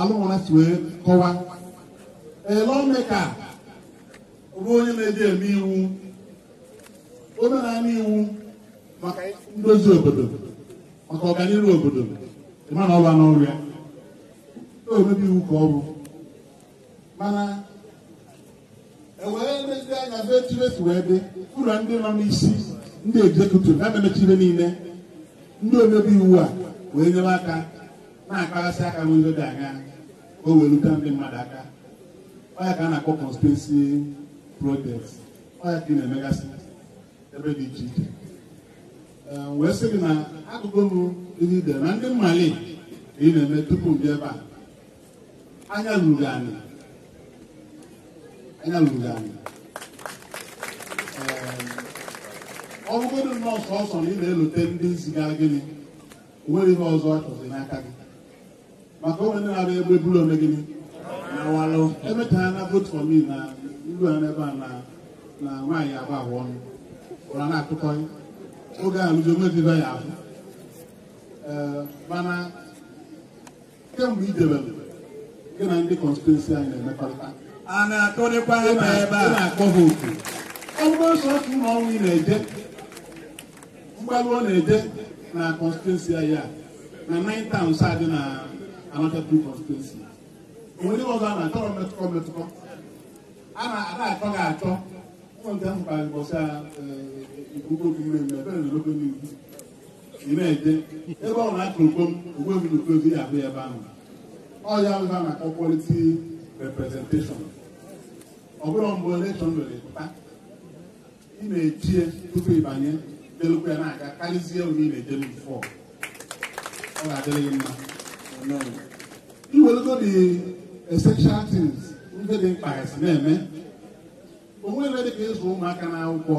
alụmọna si wee kọwa elọmeka bụ onye na-eji eme iwu onye na-eme iwu maka ndozi obodo maka ọganihu obodo ịmana ọba n'ọrụ ya omebi iwu ka ọ bụ mana ewee lezi anya ebe echire wee dị ụlọ ndị nọ n'isi ndị egzekutiv na-ememechire niile ndị omebe iwu a wee nyere aka na-akpaghasị aka n'ụzọ dị aga o wee rute ndị mmadụ aka ọya ka a na-akpọ constituency project ọya ka ị na-emegasị ebe dị iche iche wee sị gị na akụkụ nụ ndị idere na ndị mmali ka ị na-eme tupu ndị ebe a anya ruru anyị anya ruru anyị ọ bụgodị nnọọ sọsọ na ị na-elute ndị zigara gịnị nwere ihe ọzọ ọchọzi n'aka gị maka onwe ndị na-abịa egbe buru ome gịnị na walụ emetaghị na vote for me na ilu a n'ebe a na nwaanyị abụ ahụ ọnụ ụra na-akụkọghị oge alụzi onwediba ya ahụ mana kemgbe idebere gị na ndị kọnstituensi anyị na-emekọrịta a na-akụrịkwa ebe ebe a na-akpọ ha oku ọ bụrụ ụlọ ọnwụ ị na-eje mkpalụ ọ na-eje na kọnstituensi ya na 9 towns adị na Anakatu kọnstituensi onye ọzọ a na-achọ metụkọ metụkọ a na-achọ gị achọ ụmụnta mkpalị bọsa ikuku okwume ebe na logo n'iwu ị na-eje ebe ọ na-akụ okom ogwe m n'okozi ya abụ ebe ahụ ọ ya ọzọ maka quality representation ọ bụrụ mgbe elekshọn mere pụta ị na-echie tupu ịbanye delekwa ya na-aga karịzie onye ị na-edelu bifọ ọ ga-adịrị gị mma iwelugodi essential tins ndị dị mkpa esi na-eme onwe ebe dị ka ịzụ ụmụaka na akwụkwọ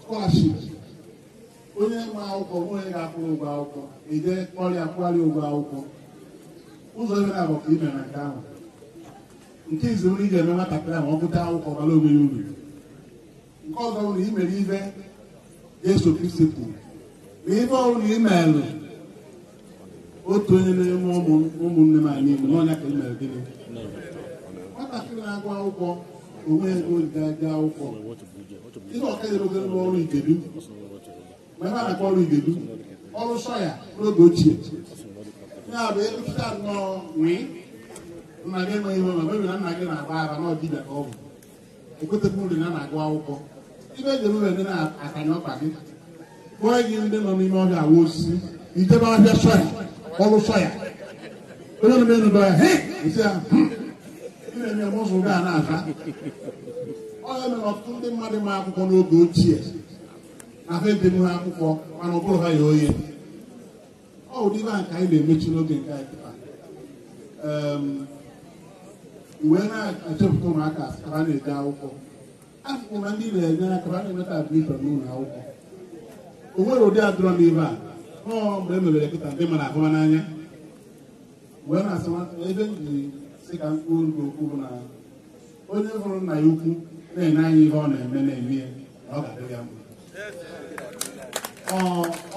skọlaship onye nwe akwụkwọ nwe onye ga-akwụrụ ụgwọ akwụkwọ eje ọrịa kwụgharị ụgwọ akwụkwọ ụzọ ebe na-abụ ka imere nke ahụ nke izi nri ị ga-eme nwatakịrị ahụ ọ gụta akwụkwọ bara onwe ya uru nke ọzọ bụrụ na i mere ibe Jesu Kristi kwuru na ife ọbụla ị otu onye n'ime ụmụnne m anyị Igbo n'ọnya ka ị mere gịnị nwatakịrị na-agụ akwụkwọ onwe ego ga akwụkwọ ihe igedu a na-akpọ ọrụ igedu ọrụ sọya n'oge ochie ya bụ nnọọ nna gị enweghị nwe ma ọ na nna gị na-agba ara n'ọdịbịa ka ọ bụ na-agụ akwụkwọ ibe ejere ụlọ dị na-akanye ọkpa gị kpụọ gị ndị nọ n'ime ọhịa awa osisi itebe ahịa sọya ọrụ sọya onye na enudo ya esi ya na-eme mụzụ ga na aza ọhịa mere ọtụtụ ndị mmadụ ma akwụkwọ n'oge ochie ahụ edem ha akwụkwọ mana ọ bụrụ ha ya oye ọ ụdị ibe a nke anyị na-emechi n'oge nke anyị pụta wee ehm, na-echepụta ụmụaka a na-eje akwụkwọ afụkwụ na ndị na-enye aka a na-enweta admishọn n'ụlọ akwụkwọ o nwere ụdị adụrọ n'ibe a ọ mgbe e mebere kịta ndị mara ahụma n'anya mgbe na-asị ebe m ji sị ka mkpụrụ nke okwu bụ na onye hụrụ nna ya ukwu na-enye anyị ihe ọ na-eme na-eme ya na ọ ga-adị ya mma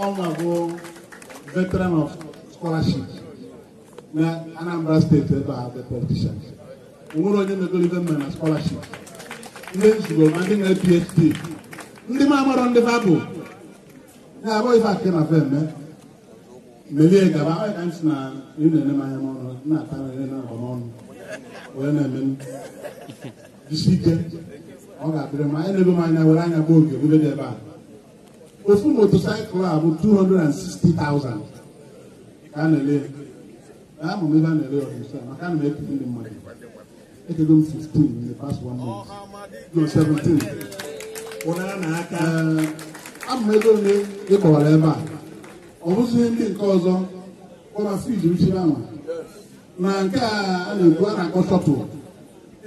ọnwa bụ veteran of scholarship na Anambra steeti ebe a bụ politician o nwere onye mebere ibe mma na scholarship ndị nzugbo ma ndị nwere PhD ndị ma amarọ ndị fabụ ya abụ ife akị na fe melie gaba na ị na-ene m n'ọnụ na-ata na-agba n'ọnụ wee na-eme isi ike ọ ga oge dị ebe a ofu a bụ 260,000 ka a na-ele ya amụ m ebe a na-ele ọrụ maka a na m ndị mmadụ it is on 16 in the past one month. No, 17. ama ego ole ị kọwara ebe a ọ bụzighị ndị nke ọzọ kpọrasiji uchiri anwa na nke a na-ekwu a na-akpọ shọtụl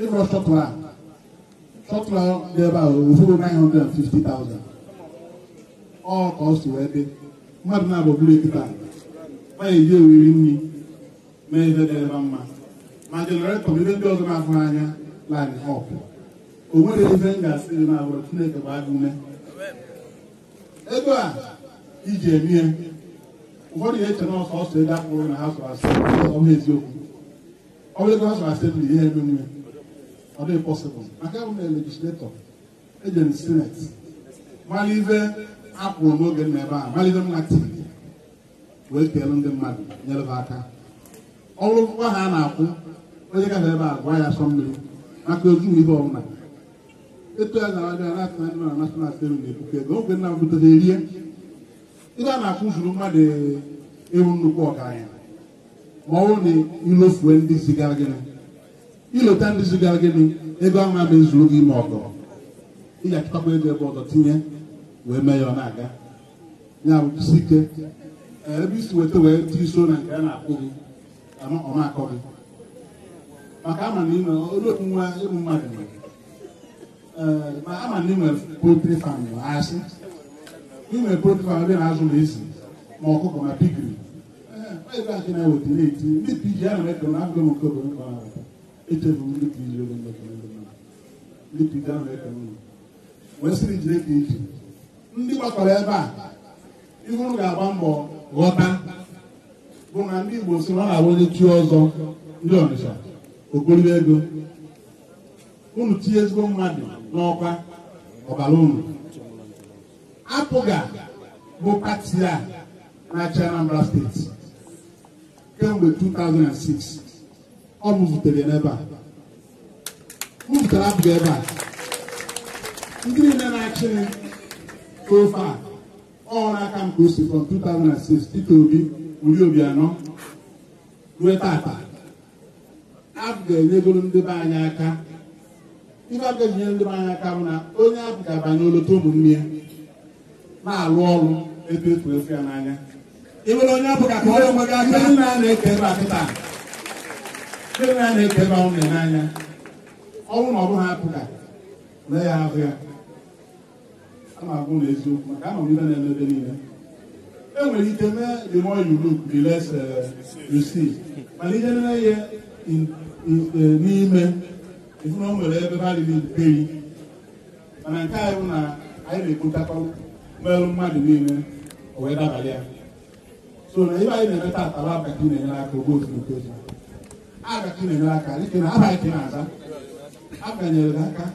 ịrọ shọtụl a shọtụl dị ebe a ofuru 950,000 ọ ka ọ si wee dị mmadụ na-abụ bụrụ ekita na-eji oriri nri mee ihe dị ebe mma ma njelọretọ bụ ihe ndị ọzọ na-ahụ anya line up o nwere ife m ga-asị gị na Chineke bụ agụ ume ego a iji emie ụfọdụ ga-eche na ọsọ ọsọ ego akpụrụ na ha sọrọ asị eziokwu ọ bụrụ ego ha sọrọ asembli ihe ebe nwe ọ dịghị pọsịbụl maka abụ na legisletọ eje m sinet mara ife akwụrụ n'oge nna ebe a mara ife m na tiri wee keelu ndị mmadụ nyere ha aka ọrụ ngwa ha na-akwụ onye ka ebe a gwa ya asọ mmiri maka ozu ihe ọbụla etu ya gara abịa na atụna adịma na national stadium na-ebuke ego oge nna butere erie a na-akwụ zuru mmadụ ewu nnukwu ọgaranya ma ọ bụrụ na ilofue ndị zigara gịnị ilota ndị zigara gịnị ego ahụ ama ezuru gị ma ọgọ ị ga-achịkwa ego ebe ọzọ tinye wee mee ya ọ na-aga ya bụ isi ike ebe isi weta wee tiri so na nke a na-akpụ gị ọma akọ gị maka ama na ịnwe olu nwa ịmụ mmadụ nwere eh, ma ama na ịnwe potri fam asị ịnwe potri fam ebe na-azụ na ezi ma ọkụkọ ma pigiri eh, ebe akị na-eweta na-eti ndị piji a na eke kọrọ agụgụ m nke obodo mkpa ahụ echefu ndị piji oge mmekọ ndị mmadụ ndị piji a na eke kọrọ ụlọ wee sịrị jide eke iji ndị gbakọrọ ebe a ihe ụnụ ga-agba mbọ ghọta bụ na ndị Igbo si na ọ na-abụ onye chi ọzọ ndị Ọnịsha ogologo ego unu tinye ezigbo mmadụ n'ọkwa ọbara unu apụga bụ pati a na-achị Anambra steeti kemgbe 2006 ọ mụzutere n'ebe a mụzutere apụga ebe a ndị niile na-achị ofe a ọrụ aka m ka o si from 2006 Peter Obi Uri Obianọ ruo tata abụ ga-enyegoro ndị be anyị aka ife abụ ga-enyere ndị be anyị aka bụ na onye abụ ga-abanye olota ụmụnne ya na-alụ ọrụ etu efu efu ya n'anya ịbụrụ onye abụ ka ka ọrụ onwe gị aka ndị na-eke ebe a kịta ndị na-eke ebe ahụ n'anya ọnwụ na ọrụ ha apụka mee ya ahụ ya ama agwụ na eziokwu maka ama m ibe na-eme ebe niile enwere ike mee the more you look the less uh, you see mana ihe nne ya n'ime ezinụlọ nwere ebe bari mana nke anyị bụ na anyị na-ekpotakwa mmerụ mmadụ niile wee dabalị ya so na ibe anyị na-eme taata abaki na-enyere aka ogbo ozugbo abaki na-enyere aka dịka na abalị ka na-aza abanyere aka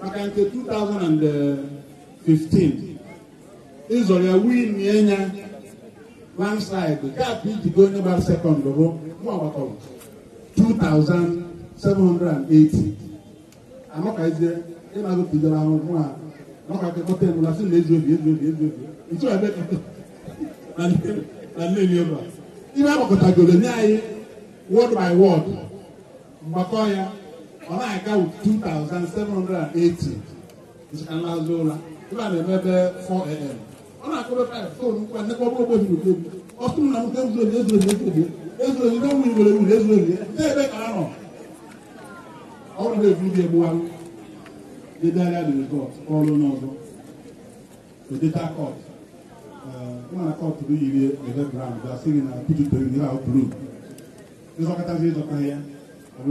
maka nke 2015 ịzọrọ ya win ya nya landslide gap iji go onye gbara sekọnd bụ mụ agbataọbụ 2,780 anọkazie ịna-agụ tijara ahụhụ a nọka kekọta emula sị na ezu obi ezu obi ezu obi ntu ebe na agbakọtagoro nye anyị by mgbakọ ya ọ na-aga 2,780 ụra na-eme ebe 4am ọ na-akọrọ 5 fon nkwa nnekọ ọbụrụ ogbe ọtụrụ na ezu obi ezu obi ezu obi ezuezudo nwa igbere wuru ebe ka ọrụ na dị bụ ebe na pijutere gị ahụ buru ịzọkọtazi ịzọta ya na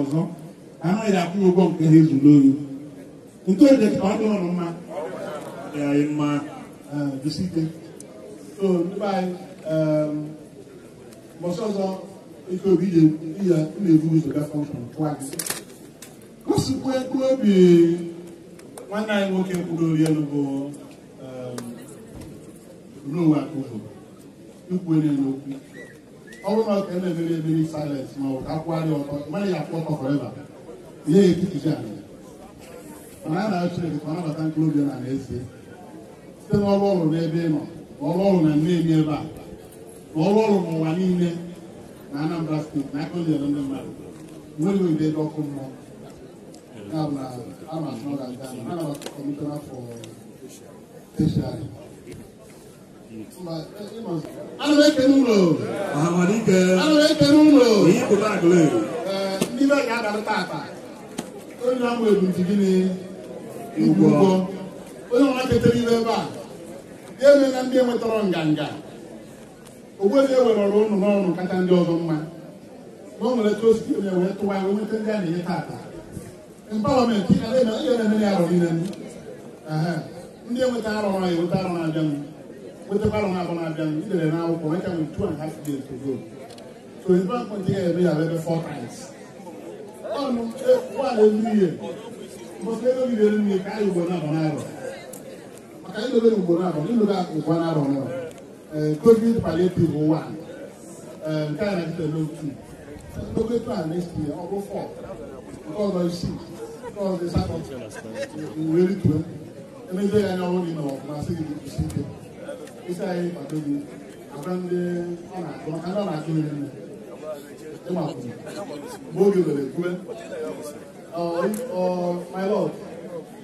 ọzọ ụgwọ nke ha ezuru nke ọ dị de site so ndị anyị mbọsị ọzọ ike obi na-ebu ụzọ gafọ gosikwa ego obi nwanne anyị nwoke mkpụrụ ori elu bụ Noah Akụvo ikwuere n'okwu ọ bụrụ na ọ ka ma ọ ka akwụgharị ya ihe ya anya mana nabata na site n'ọrụ na ebe ị nọ ọrụ ọrụ na mmemme ebe a ọrụ ọrụ n'ụwa niile na Anambra steeti na aka onyere ndị mmadụ nwere mgbe ebe ọkụ mmụọ ndị be ga-abalị tata onye ọmụ ebumji gịnị ụgwọ onye ọma ketara ibe ebe a ya eme na ndị enwetara nganga ogwezi ewere e ọrụ ụnụ n'ọrụ kacha ndị ọzọ mma na o nwere etu osisi onye wee tụwa wee nweta ndị a na-enye tata mpalọmentị ị na-eme ihe na-eme ya arọ niile ndị enweta arọ na eweta arọ na-abịa m nwetakwa arọ na-abụ na-abịa m idere na akwụkwọ nwecha m two and half days to go so ebe a kwentị ya eme ya ebe four times ọnụ nwaanyị e, elu ihe mbọsị ego gidere nne ka anyị ugbo na-abụ na arọ ka ilo bɛ nugu na dɔn ilo bɛ nkɔ na dɔn nɔ tobi pale bi o wa nka yɛrɛ tɛ lo tu tobi to ale si yɛ ɔbɔ fɔ nkɔlɔ si nkɔlɔ de sa kɔ nwere tu ɛmɛ bɛ yɛ ɔwɔ ni nɔ ma se ki si te isa yɛ pato bi abɛnde ɔna dɔn kana ɔna to yɛ nɛ ɛma kun bóge wɛrɛ kuɛ ɔ ɔ my lord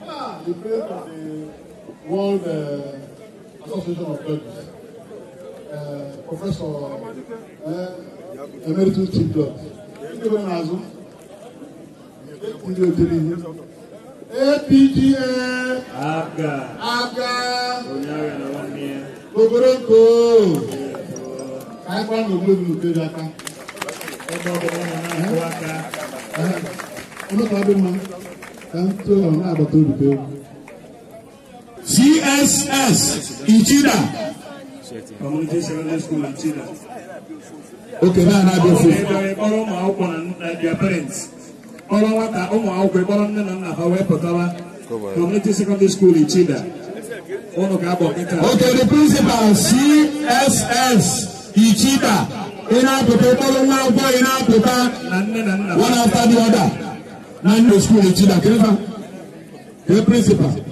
ah the prayer for the. World uh, Association of Judges, uh, Professor uh, Emeritus Chief Judge. Ndébẹ̀rẹ̀ Nàzú, Ndébẹ̀rẹ̀ Tẹ̀lé, APGA, APGA, APGA, Gbogbodoko, Káyipá Gbogbodoko Nkejì Aka. Ọgbọ́n the náà ń kó aka. Olókàá bí mo, ká ń tó CSS Ichida. Community Secondary School Ichida. Okay, now I go for Kpọrọ ụmụ akwụkwọ na their parents. Kpọrọ nwata ụmụ akwụkwọ kpọrọ nne na nna ha wee pụtawa. Community Secondary School Ichida. Okay, the principal CSS Ichida. Ị na-apụta kpọrọ nwa akwụkwọ ị na-apụta. Na One after the other. Nine nne school Ichida. Kedu the Kedu principal?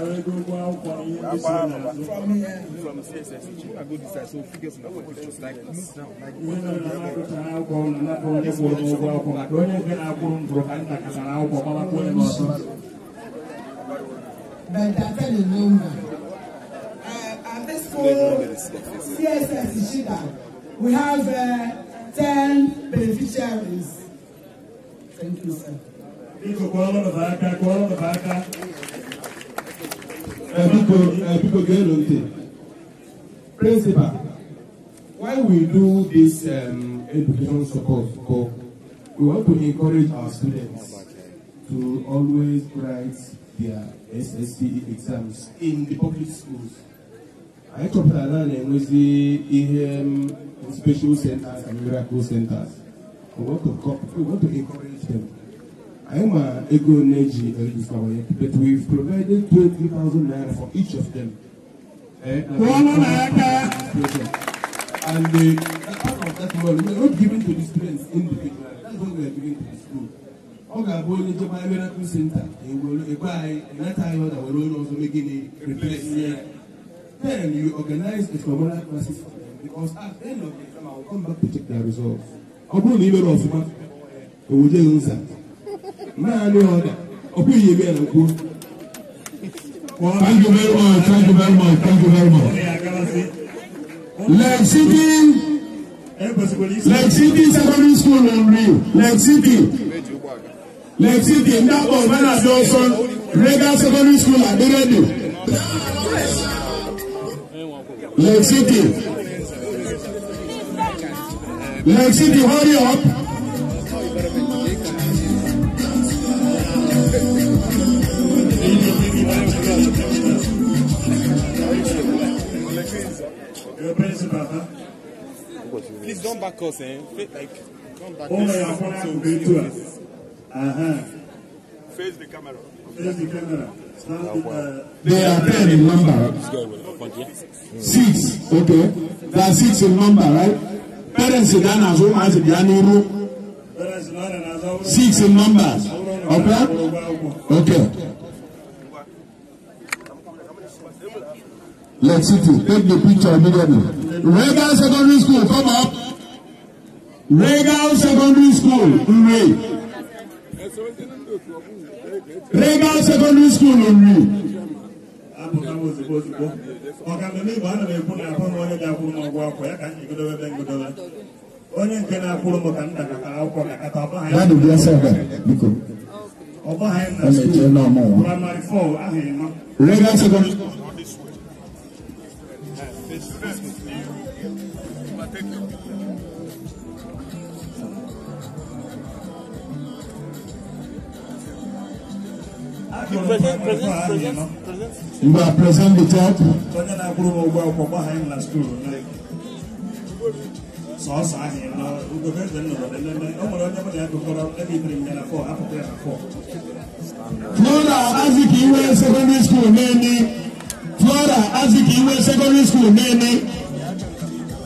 At this school, CSS Ishida, we have uh, beneficiaries. Thank you, sir biko biko gee ntị principal why we do this um, education support for we want to encourage our students to always write their SSCE exams in the public schools I chọpụtara na na-enwezi ihe special centers and miracle centers we want to, we want to encourage them anyị ma ego na-eji uh, but we've provided 20,000 naira for each of them. Eh, and the, part of that money we're not giving to the students individually that's what we are giving to the school. Oga, ga-abụ onye jebe ebe na-akpụ senta egwe anyị enata anyị ọda were onye ọzọ megịnị replace ya then you organize a formal classes for them because at the end of the exam I will come back to check their results ọ bụrụ na ị mere ọfụma do that naanị ọda ọ bụghị ebe ya na kwuo Thank you very much. Thank you very much. Thank you very much. Eh, Lake City, Lake City Secondary School Nri, Lake City, Lake City, Ndakpọ Bana Dawson, Regal Secondary School Aderedu, Lake City, Lake City, hurry up. le principal. Please don't back us, eh? Like, don't back oh, us. Yeah, so we do it. Uh-huh. Face the camera. Face the camera. Uh, they are ten in number. Six, okay. They are six in number, right? Parents in Ghana, so as in Ghana, six in numbers. Okay? Okay. Lexington. Take the picture immediately. Regal Secondary School, come up. Regal Secondary School, Nre. Regal Secondary School, a Nre. onye nke na-akwụrụ m ka m dakata akwụkwọ ka kata ọba ha ya ọba ha ya na skuul praịmarị fọl ahụ ịma regal sekọndịrị a student, you present, the Onye na-akwụrụ m ụgwọ akwụkwọ gbaha anyị na skuul sọọsọ ahụ nọ ugobe eze nwere onye mụ na ya gụkọrọ ebe ibiri m ya na N'ụlọ ka skuul flora aziki iwe secondary school mẹ́ni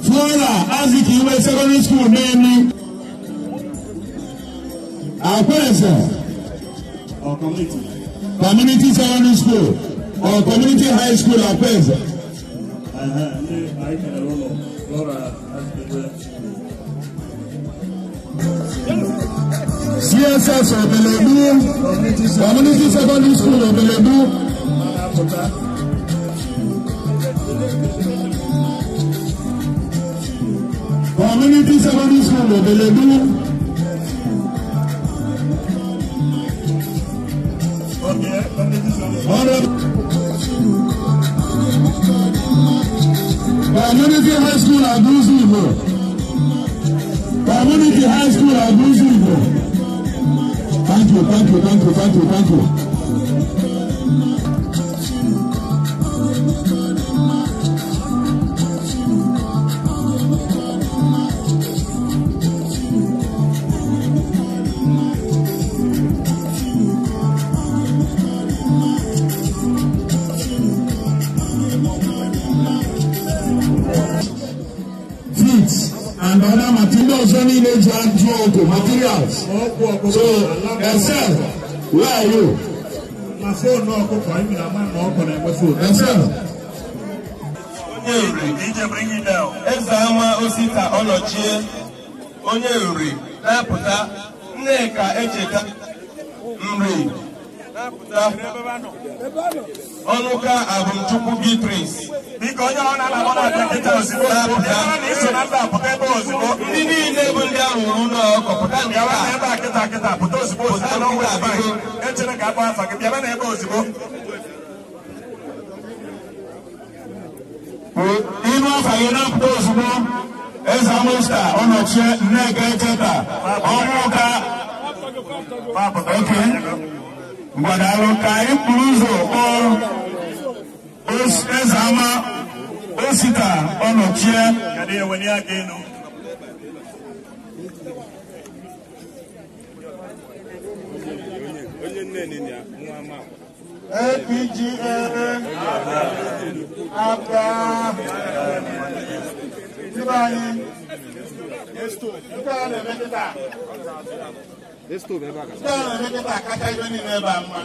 flora aziki iwe secondary school mẹ́ni àpẹẹsẹ̀ community secondary school or community high school àpẹẹsẹ̀. Uh-huh. CSS Obeledu Community Secondary School Obeledu. Community service school available. Okay, community service. Community high school abusi igbo. Community high school abusi igbo. Thank you, thank you, thank you, thank you, thank you. village hand drug materials. So, Excel, where are you? Excel. Eze ama osita ọnọchie onye nri na-apụta Nneka Echeta nri na-apụta ọnụka abụmchukwu gị prince biko onye ọrụ na-alabọ na dọkịta ozugbo ebe na iso na mba pụta ebe ozugbo ndị niile bụ ndị ahụ ụlọ ọkọpụta nke a ebe a kịta kịta pụta ozugbo ozugbo na ọnwa ebe anyị echere ka akpọ afa gị bịaba na ebe ozugbo ime afa gị na-apụta ozugbo eze amusta ọnọchie nneka echeta ọnwụ ụka ok gbadalo ka ikpuru ụzọ eze ama osita ọnọchie APGA abra na-emekọta akacha ibe niile ebe a mma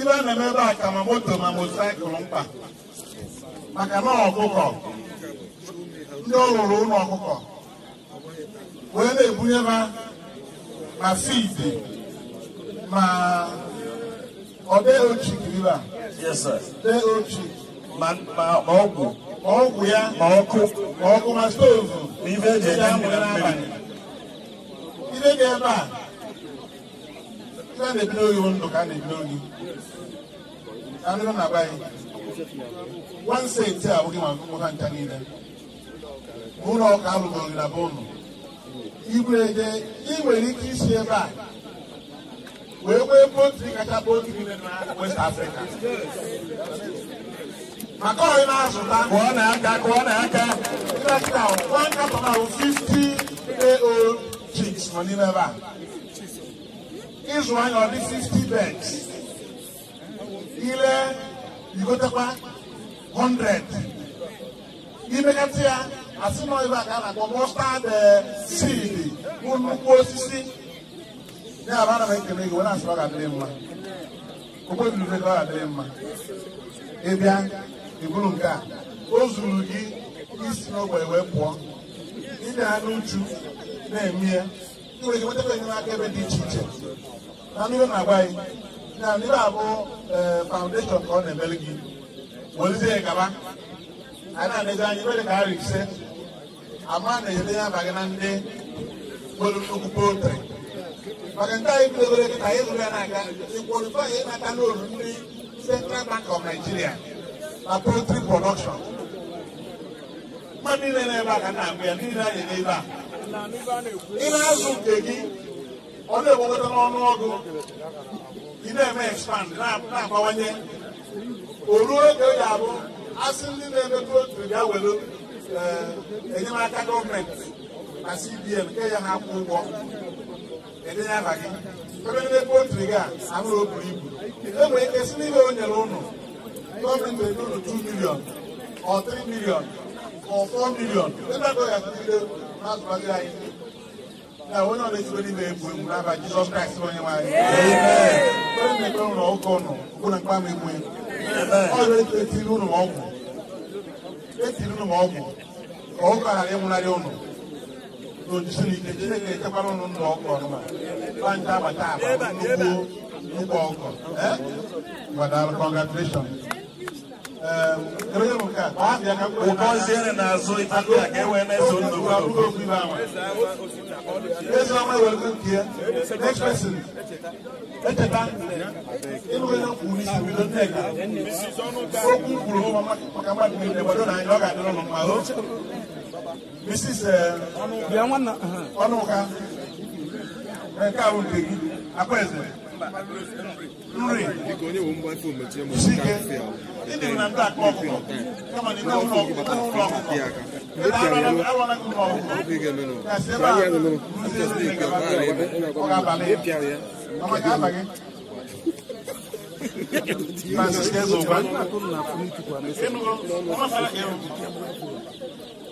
ibe a na-eme ebe a ka ma moto ma motosaịkụl mkpa maka na ọkụkọ ndị ọ lụrụ ụlọ ọkụkọ wee na-ebunye ha ma fidi ma ọ dịghị a. tee ochie. ma ọgwụ ọgwụ ya ma ọkụ ma ọkụ ma stovu na ife ebe a ndị na-ebido oyi ndụ ka a na-ebido oyi anụrụ na be one a abụghị maka ụmụ ha niile ụlọ ọka alụgoro na be ụnụ ị nwere ike isi ebe a wee nwee poultry kacha poultry niile na west africa maka ọyị na-azụta kụọ na aka kụọ na aka tractor one carton ahụ fifty ao chicks nọ n'ime ebe a ịzụ anya ọ dị 50 beds ile igotekwa 100 imegatị ya asị nọ ebe a ka a na-akpọ mustard seed bụ nnukwu osisi ya abụ eh, ana m ekele gị were asịrị ọ ga mma okpebi ube ọ ga-adịrị mma ịbịa iburu nke a o zuru gị isi n'ogbe wee pụọ ịdị anụ uchu na-eme ya nwere gị nwetara enyemaka ebe dị iche iche na mmiri na agwa gị na mmiri abụ faụndeshọn ka ọ na-emeli gị ya gaba anyị na-anezi anya ebe dị ka arị ise ama na-enyere ya aba gị na ndị nwere nnukwu poltri maka nke anyị bidogoro kịta anyị zụrụ ya n'aka ịkwalifai ịnata n'olu ndị Central Bank of Nigeria na poultry production mmadụ niile na-ebe a ka eh, na-agụ eh, ya niile anyị n'ebe a ị na-azụ nke gị ọ na-egwekọta n'ọnụ ọgụ ị na-eme expand na-abawanye o ruo oge ọ ga-abụ asị ndị na-eme poultry bịa welu enyemaka eh, gọọmenti na CBN nke ya ha kwụ ụgwọ edenye abaghị ebe ndị pọltrị gị a amụrụ o buru ibu enwere ike si n'ime o nyere ụnụ gọọmenti ego ụnụ 2 milion ọ 3 milion ọ 4 milion ebe agụ ya tụgide n'azụbazi anyị na onye ọ na-ezigbo n'ime egwu egwu n'aba jizọs kraịst onye nwaanyị onye na-ekpe ụlọ ụka ụnụ ụkwụ na mkpama e egwu ọrụ etiri ụnụ e ọgwụ etiri ụnụ ọgwụ ka ụka ghara ịnwụnarị ụnụ n'olu Chineke Chineke echekwara ụnụ nna ọkụ ọnụma ọ nke abata aba nnukwu nnukwu ọkụ gbadara congratulation ụkọziere n'azụ ife ka e wee na-eso ndụ Ezioma ewere nke ya next person echeta ịnụgide kwuru isi bido nneka okwu kwuru maka mmadụ niile gbado na anyị ọ ga-adịrị ụnụ mma o Mrs. Ọnụka nke ahụ nke gị akwaeze nri sike ndị na ndị akpa ọkụkọ kama na ịnwe ụlọ ọkụkọ Francisco Zouba.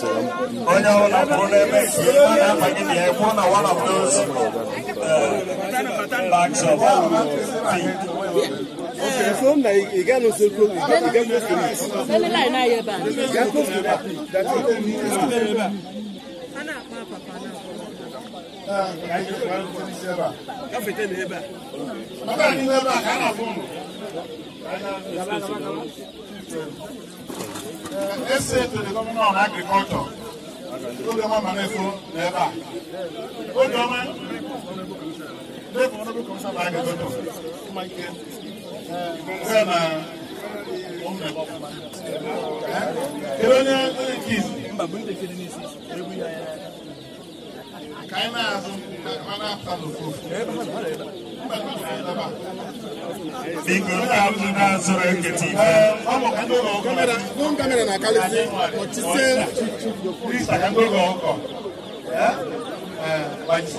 onye ọ bụla pụrụ n'ebe ka ihe a na-amaghị na ya pụọ na one of those bags of feed. Okay, so now you get no Ka fete na phone. Ana, Let's say to the governor on agriculture obiọma manefo na ebe a obiọma kedu onye onye nke izu ka anyị na-azụ ma na-apụta n'ofu Biko kalu na zoro eketi. Kamera, non kamera na kalisi. Otise. Krista kango go oko. Eh? Eh, baji.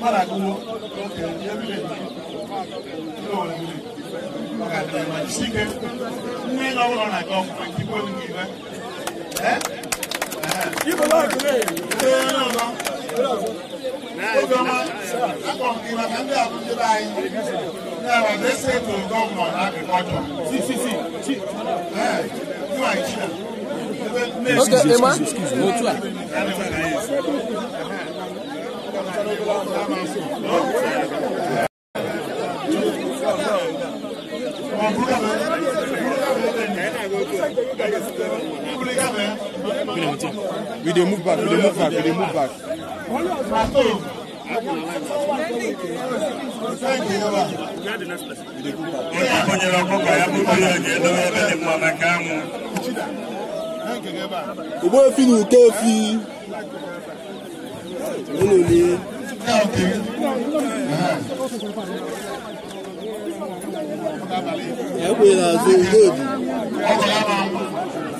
na wala na go ko kipo ni ve ojú ọmọ lápọn We dey move back, we dey move back, we dey move back. Ìgbó efi ni ìké efi. Nínú ni. Ẹ pè é lásán ìgbó èdè.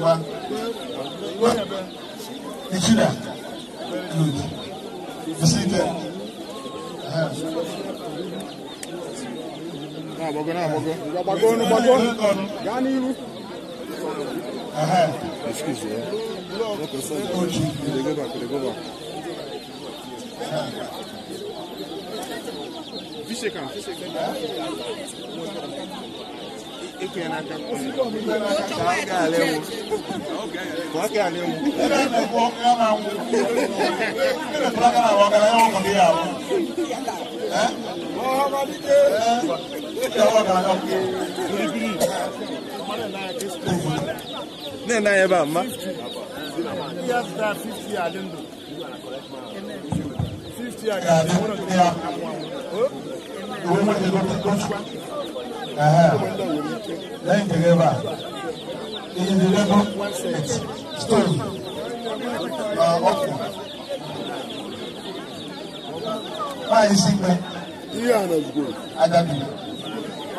wa wa nìjíríà good bísí tẹ. Náà bọ̀gọ́ náà bọ̀gọ́. Bàgọ́ nu bàgọ́. Gani iru. Excuse me. Oji. Kìlẹ̀ gbẹ́bà eke yẹn n'aka k'a kẹ alẹ wo k'a kẹ alẹ wo. ẹ bẹ ne bọ ẹ ma wo ne bẹ fọlọ kana wọn kana yọrọ kọni yà wọ. mọhamadi de. ẹ yọrọ kana ka fi biribiri. ne n'a yẹ ba ma. yes da fifty ale do. fifty ale do. ìwé mo ti lọ sí kọ́sùn lẹ́yìn dẹ̀rẹ́bà èyí ni lẹ́gbọ́n stone ọkọ̀ báyìí sí pẹ́ ajabi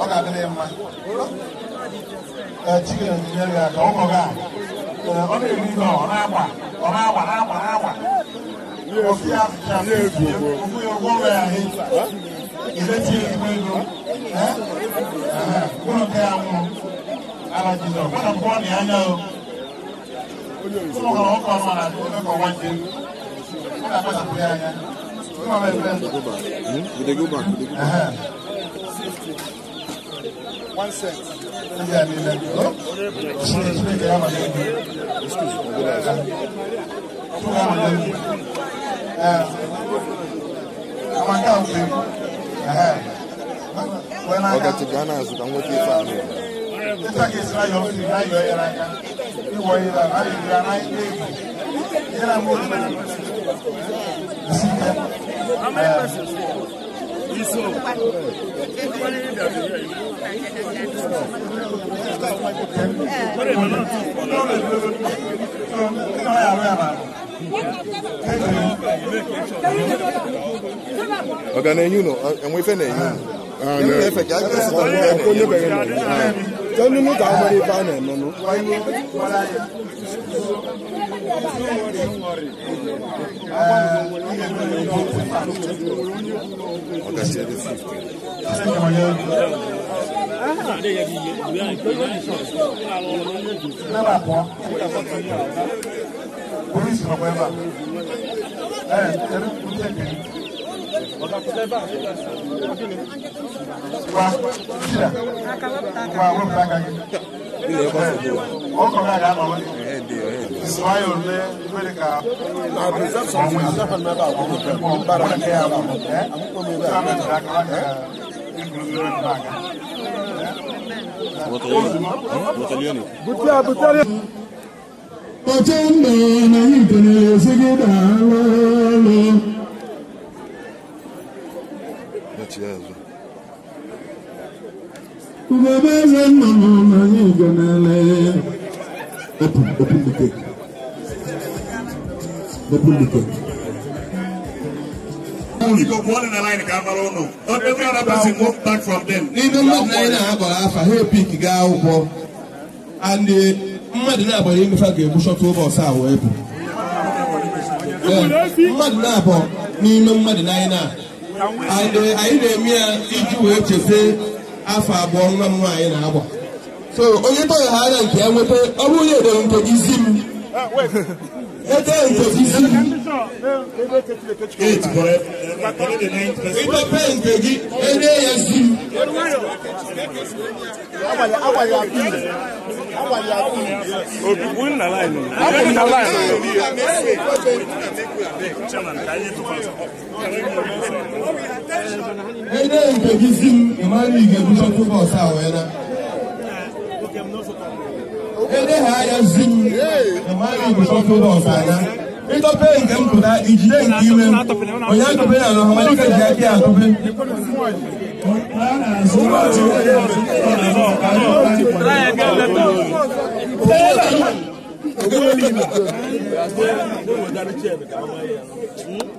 ọkọ̀ abẹ́rẹ́ mma chicken ní ẹ̀rẹ́ àkọ́ ọkọ̀ gà ọ na-eri ihe ọ na-agba ọ na-agba na-agba na-agba ofu ya ofu ya ụgwọ ọrụ ya ahụ ìrètí ẹgbẹ́ ìlú ẹ kúrò kẹ́ àwọn alajidọ kọ́nà kọ́ ni anya o kúrò kọ́ ọkọ̀ ọmọ náà tó ẹ̀kọ́ wájú kọ́nà kọ́ sàkó yá anya kúrò bẹ́ẹ̀ bẹ́ẹ̀. ìdègé bá ìdègé bá. One set. Yeah, yeah, yeah ọ̀gá ti Ghana àsùkà ń wọ́tí fà mí. Nígbà kí ìsirá yọ fún mi láyọ̀ ẹ̀rọ ajá, ìwọ ìlà láyé ìlà láyé ilé ìgbò, ìlà mú òkú ẹ̀rọ sí ẹ̀. Thank you ọ̀gá na ẹ̀yìn nọ ẹ̀wọ̀n ifẹ̀ na ẹ̀yìn ẹ̀yìn ẹ̀fẹ̀ kí á jẹ́ sí ọ̀gá ẹ̀kọ́ ní bẹ̀rẹ̀ nọ tẹ́nu ní káwọn ọmọdé ifá nà ẹ̀nọ nù. ọ̀gá ṣe ẹ̀dẹ̀ fífi. Mẹ́bàá polisi ma kɔɲɛ ba ɛ ɛri kun tɛ kɛ wa sira wa o bila eh, eh, eh, ka kɛ o kɔrɔ y'a ma wale sɔɔ y'o lɛ i bɛ de ka mɔmu baara kɛ y'a ma ɛ k'a bɛ bila kaba kɛ i gulogulo bɛ bila a kan. Botellone. Botellone. ọchọnna na ike na-esi gị daalụ ọlụ ugogbe eze nna nọ na ike na-ele epulike epulike ndị mmadụ na anyị na-agbara afa ha epik gaa akwụkwọ and mmadụ na-agbara emefe a ga-egbuchọta oge ọsọ a wee mmadụ na-abụ n'ime mmadụ na anyị na-eme ya iji wee chefe afọ abụọ nwa m nwaanyị na-agba so onye tọghị ha anya nke ya nweta ọ bụrụ na edere nke gị zi m ah, était impossible. Eight correct. Independent Begi, NASU. Obi win na line. Win na line. Independent Begi Zim, Emmanuel Igebuso tó bọ̀ sáà wẹ̀ náà eleha ya zuru ebusọfụrụ ọsana ịtọpe nke m pụta ijide nke ime m onye atụpe ya na ọhamalike ji aka ya atụpe Thank you.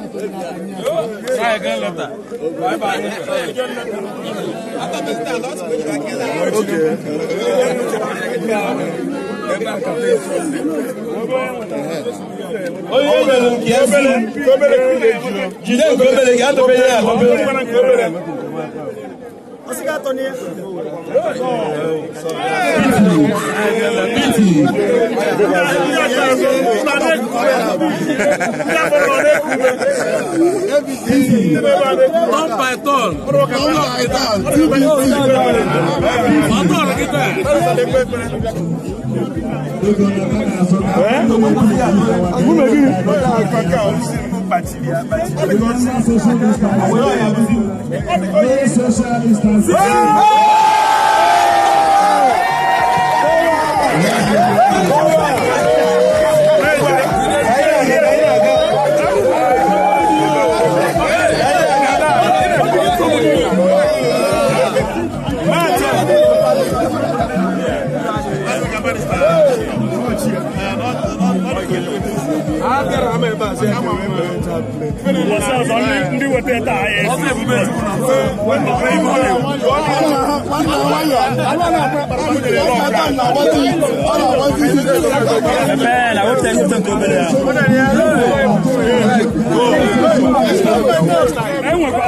Oye Not by at all. Not by at all. Ọ̀dọ́ rẹ̀ kíkẹ́. Àbúrò kí ni? Àkàkà ọ̀hún partilhar, partilhar. Olha o social distancing. Olha o social distancing. somebody start. ndị weta taa ya enwekwa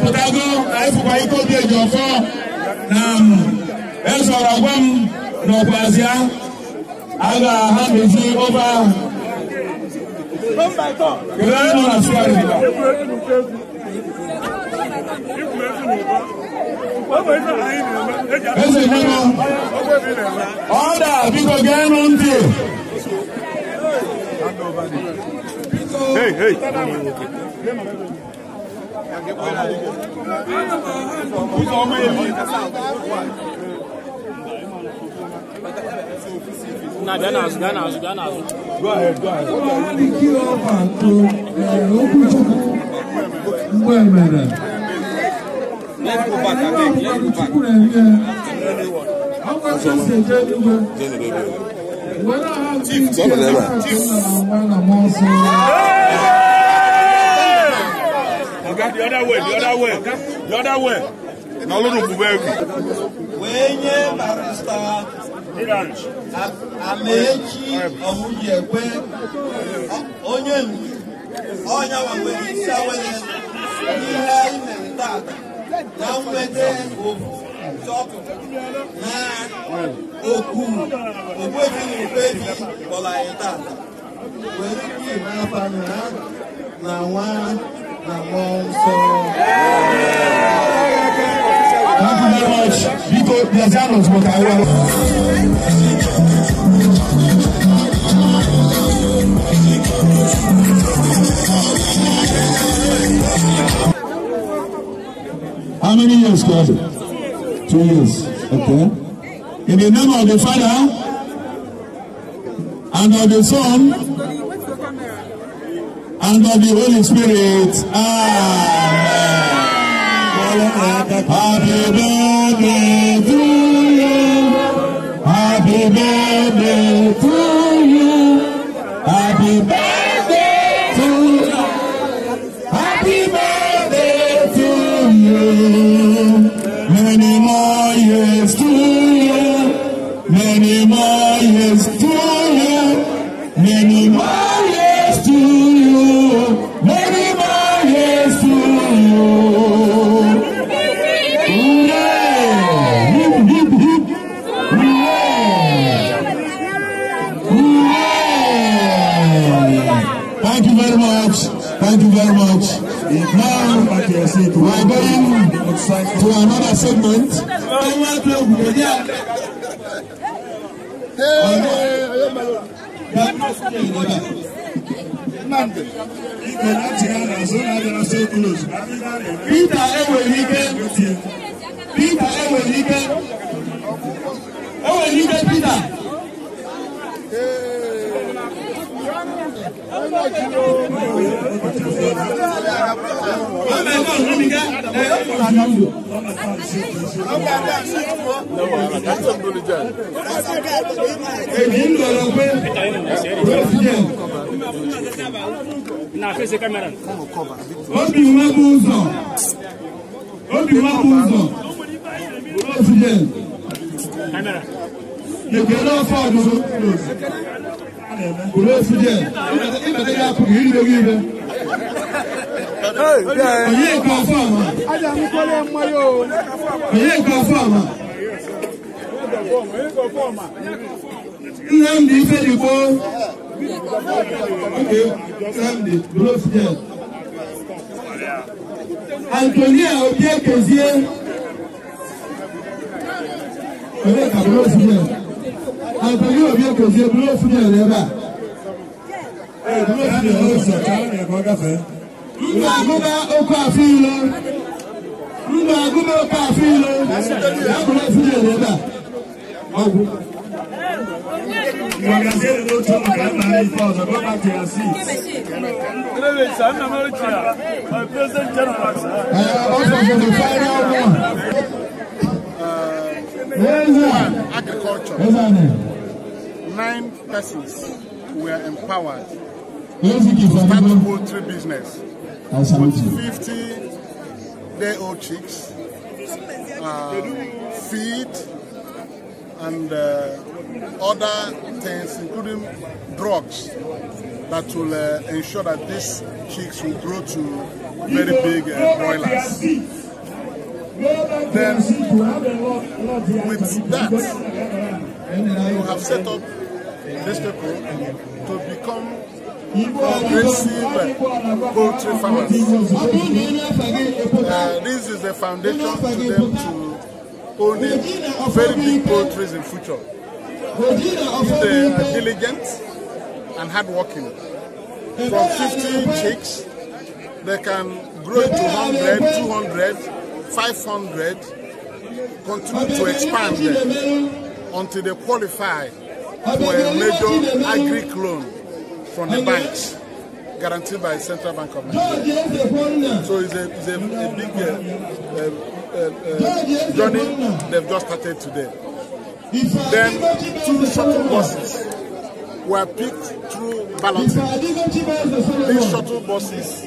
apụtago anyịfụkwa ike obi eji ọfọ na ezọrọ gwa m n'ọkwazịa a ga mezi ofe ahụ ọda biko geenụ ntị Hey, hey. Nah, then as, then as, then as. Go ahead, go ahead. Wọ́n ní kí ọba tó ọkùn tó gbọ́ ẹ̀mẹ̀ rẹ̀. Ẹ̀ka ní ọ̀pọ̀ àbùtúkù rẹ̀ rí ẹ. Àwọn ẹ̀ṣẹ̀ ṣe jẹ́ nígbà. Wọ́n náà á ti ń kí ẹ̀ka tó ń lọ àwọn ọmọ ọ̀sán. Oga, the other way, the other way, the other way. Na olódùn kù bẹ́ẹ̀ kù. Wéyé barista Amaechi Ọ̀húnyẹ̀wé onye nwe ọnya nwere isi awele n'ihe anyị mere tata na mgbede ovu tọpụ na okwu ogbebi ogbebi kpọrọ anyị tata were ike ime afa na nwa Thank you very much. Biko, there's animals, but I will. How many years, God? Two years. Okay. In the name of the Father and of the Son Under the Holy Spirit. Amen. Happy birthday to you. Happy birthday to you. to another segment. Peter enwere ike Peter enwere ike enwere ike Peter. Ee èmi ń lọ lọ pé president obi nwa bụ ụzọ obi nwa bụ ụzọ president mebere afọ ọdụdụ president ịbata ya apụghị irigo gị ibe Òye ìkọ̀ fún àwọn. Ájàmú kọ́lé ọmọ yóò. Òye ìkọ̀ fún àwọn. Nnamdi Ifedikpo. Okay, Nnamdi, dúró sí ẹ̀. Antonia Obie Kezie. Òye ìkọ̀ dúró sí Antonia Obie Kezie dúró sí ẹ̀ rẹ̀ ẹni ọ̀rọ̀ ìṣọ̀tá ẹ̀kọ́ gàfẹ́. nínú àgùnbá okó àfin lọ nínú àgùnbá okó àfin lọ lákùnrin fúnjẹ rẹ bá ọgùn. Magazine ló tó Ghana ní ìfọ̀sọ̀ ló bá ti àṣì. Ọ̀sán for the final one. Agriculture. Nine persons were empowered Tomato poultry business. I 50 day old chicks, uh, feed, and uh, other things, including drugs, that will uh, ensure that these chicks will grow to very big uh, broilers. Then, with that, we have set up this people to become aggressive poultry farmers. Uh, this is the foundation for them to owning very big poultry in future. If they are diligent and hardworking, from 15 chicks, they can grow to 100, 200, 500, continue to expand them until they qualify for a major agri loan from the banks guaranteed by Central Bank of Nigeria. So it's a, it's a, a big uh, uh, uh, uh journey they've just started today. Then two shuttle buses were picked through balloting. These shuttle buses,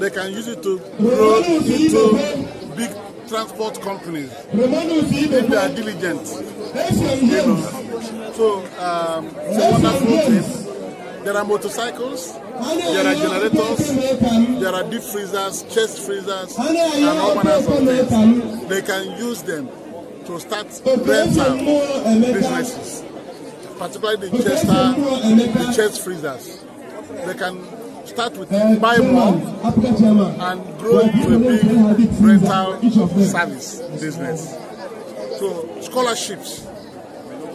they can use it to grow into big transport companies if they are diligent. You know. So um, it's a wonderful thing. There are motorcycles, there are generators, there are deep freezers, chest freezers, and all manners of things. They can use them to start rental businesses, particularly the chest, uh, the chest freezers. They can start with buy more and grow into a big rental service business. So scholarships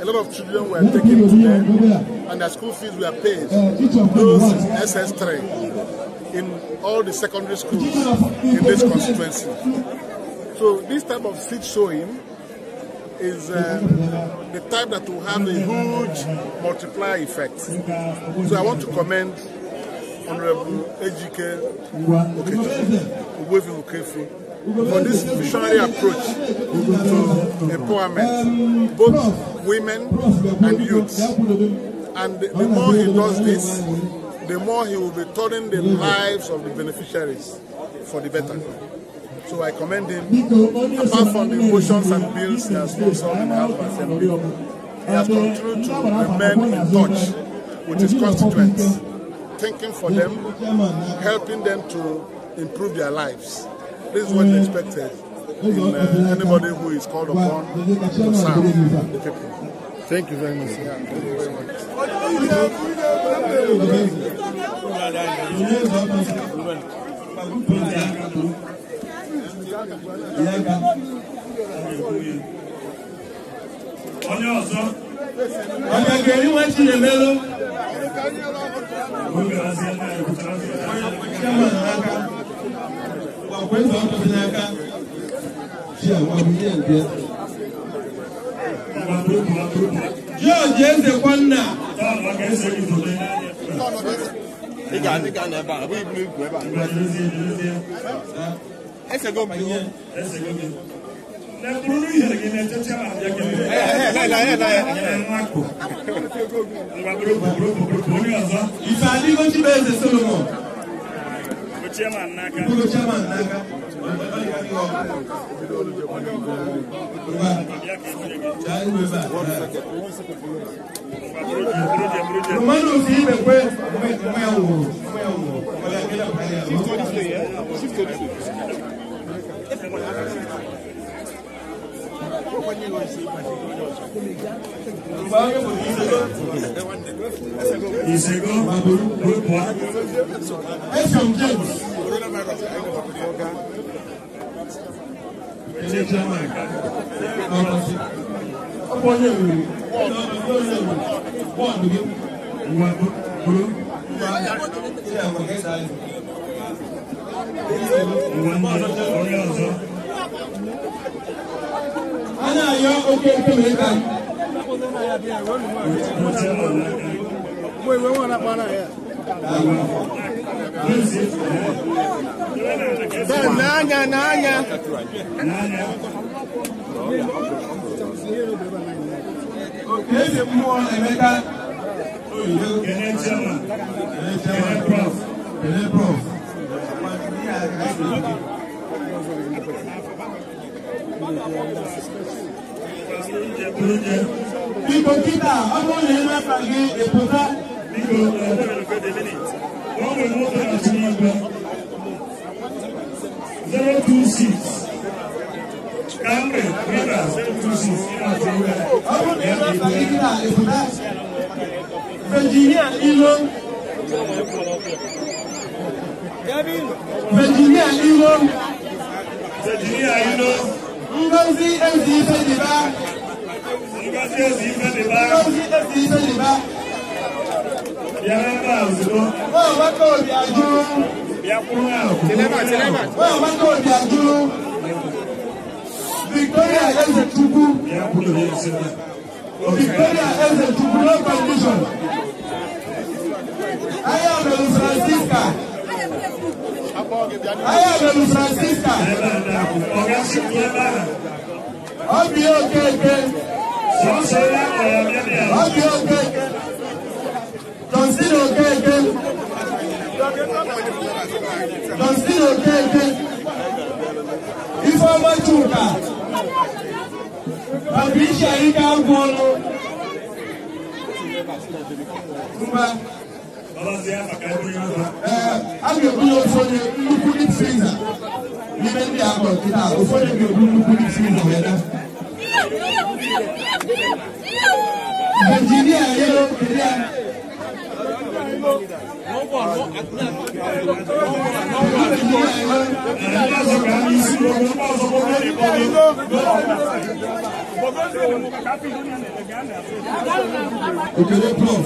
a lot of children were taken to them, and the school fees were paid. Uh, Those SS3 in all the secondary schools in this constituency. So this type of seed sowing is uh, the type that will have a huge multiplier effect. So I want to commend Honorable Ejike Okejo, Uwevi Okefu, for this visionary approach to empowerment, both women and youths. And the more he does this, the more he will be turning the lives of the beneficiaries for the better. So I commend him. Apart from the motions and bills that has sponsored in the House of Assembly, he has continued to remain in touch with his constituents, thinking for them, helping them to improve their lives. This is what is expected in uh, anybody who is called upon to serve the people. Thank you very much. Ọjọ́ ọ̀sán, ọjọ́ ìgbèrí wọ́n ti lè mélòó. Gómìnà sí ẹgbẹ́ ìkùtà, ṣẹ́wọ̀n náà ká ọkpụkpọ ọkpụkpọ n'aka ji agwa bụ ihe nke George Ezekwanna ị ga-adịga n'ebe a bụ ibu ibu ebe a esego m ihe esego m na-eburu ihere gị na-echecha ma abịa gị ngwa bụrụ bụrụ bụrụ onye ọzọ ife adịgo Chibueze Solomon chairman n'aka bụrụ chairman n'aka mmadụ ofe imekwe onwe ya wụrụ onwe ya wụrụ ọbara gị na ìṣègùn àbúrú group one fm james ilé chairman ọ̀rọ̀ sí ọ̀pọ̀ yẹ̀ wò ọ̀pọ̀ yẹ̀ wò wọ́n àdúgbò ìwà àbúrú ìwà ní ọ̀rẹ́ ọ̀sán náà yọ ojú ojú báyìí. Mo ìwé wọn lápá náà yẹ. n'anya n'anya. mmụọ Emeka Oyibo. Kene Chama. Kene Prof. Kene Prof. Thank you. Biko kita ọdún yẹn máa fagi èpo tá. Biko wọ́n mú ìwọ́n tó àti máa gbà. Zero two six. Kamre Rivera zero two six nínú yẹn máa fagi kíkà èpo tá. Ilo. Virginia Ilo. Virginia Ilo. Ngozi Ezeife-Deba. Ngozi Ezeife-Deba. Ngozi Ezeife-Deba. Bịara ebe a ozugbo. Nwa Amaka Obiaju. Bịakwuru ahụ. Nwa Amaka Obiaju. Victoria Ezechukwu. Bịakwuru ya esi na. Victoria Ezechukwu no condition. I am Francisca ayọ̀bẹ̀lú francisca ọbí okeke ọbí okeke johnson okeke johnson okeke ifeoma chuka patricia ike agwọlụ. Eh, abịa ebu na ofu onye nnukwu dip friza n'ime ndị akpọ nkịta ofu onye ga-ebu nnukwu dip friza wee na injinia yelo injinia Okele prof.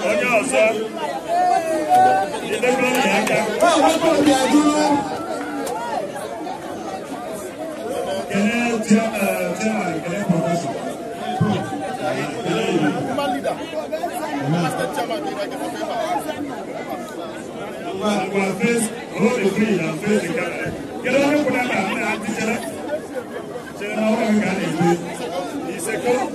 onye ọzọ edebe onye aka kelee chairman kelee prọfesọ Wa face, hold the free and face the camera. Get on the pulling and I'm not teacher. Teacher, now I'm going to do. He said, "Go."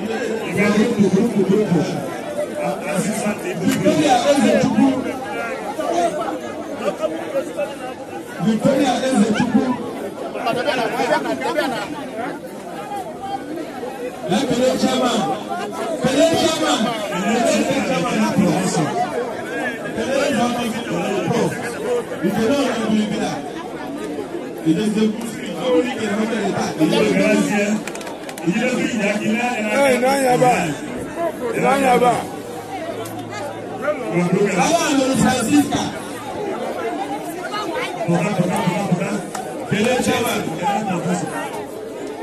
Il va grupo, grupo, grupo. Victoria Ezechukwu Victoria Ezechukwu na kele chairman kele chairman kele chairman na professor kele chairman prof ìjọba ọ̀rọ̀ ìbílẹ̀ ìbílẹ̀ ìdẹ́sẹ̀kù ìjọba ìkẹrẹ mọ́tò ìta ìjọba ìjọba ìjọba ìjọba ìjọba ìjọba àwọn àlọ́ francisca. bọ̀dá bọ̀dá bọ̀dá bọ̀dá kẹlẹ́ chairman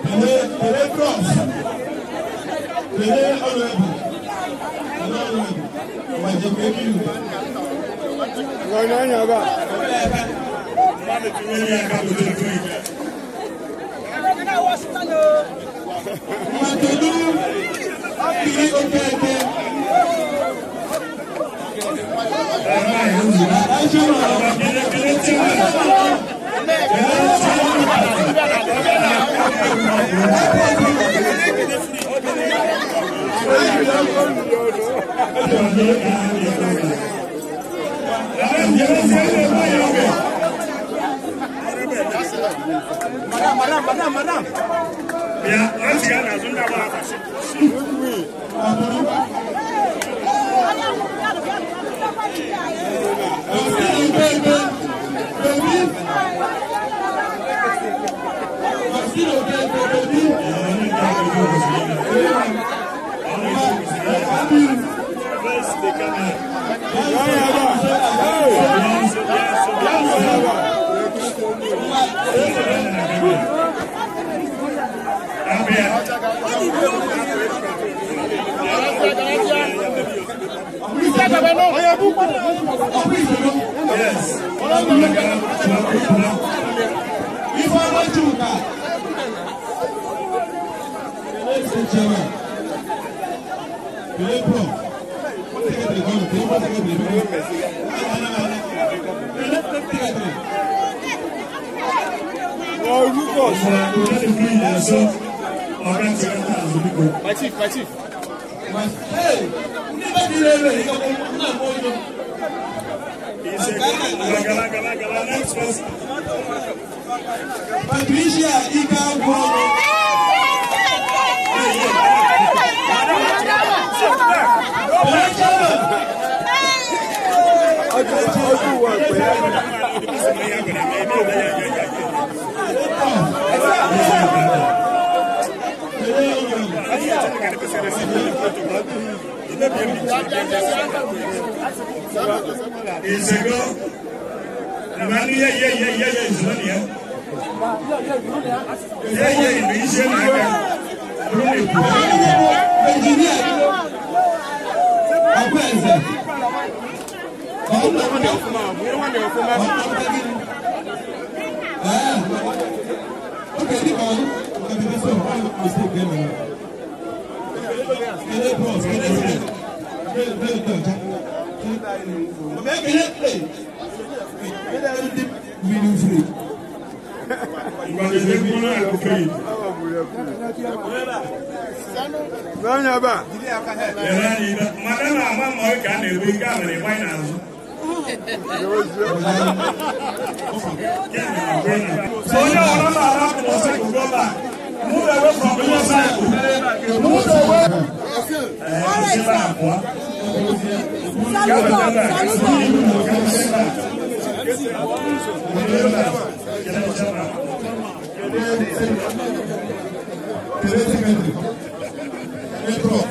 kẹlẹ́ kẹlẹ́ cross kẹlẹ́ honourable kẹlẹ́ honourable ọ̀wà ìjọba ẹbí mi. wọ́n ní ọ̀yàn ọba. Mọ̀tẹ́lú kiri ojú ẹgbẹ́. Madam, madam, madam. Ya, an siya na sun da ba a Amen. Yes. If Patricia Icaboro. Thank you. ìṣègbè ìmọ̀lú yẹ yẹ yẹ yẹ yẹ ìṣúná nìyẹn yẹ yẹ ìlú iṣẹ́ nìyẹn lórí ìlú. ẹnjìníà ọgbẹ́ ẹ̀sẹ̀ ọgbẹ́ ẹ̀sẹ̀ ọgbẹ́ ẹ̀sẹ̀ ọgbẹ́ ẹ̀sẹ̀ ọgbẹ́ ẹ̀sẹ̀ Kele bros, kele play. Play, play, play, ja. Mè Onye ọ̀rọ̀ m àrà ọsọ ìgbọ́ bá. Move away from your cycle. Move away. All right, sir. Salute God.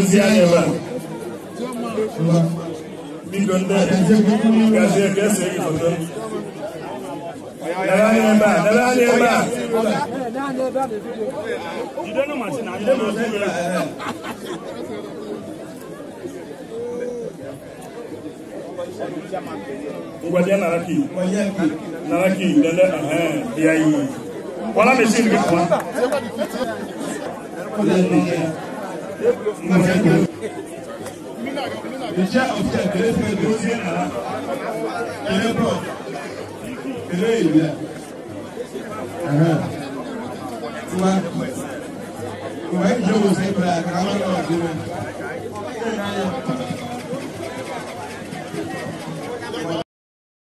Salute God. Mi gbọ́dọ̀, Dadani member, Dadani member. You don't know Martin, you don't know. Wadi naraki, naraki, dende, ah, yai. Wala mesin ke kuan. Le chef of the great deuxième, le prof eléyìí rẹ̀ tiwa tiwa ìjọba ṣe é bẹ̀rẹ̀ àkàrà wọn náà dé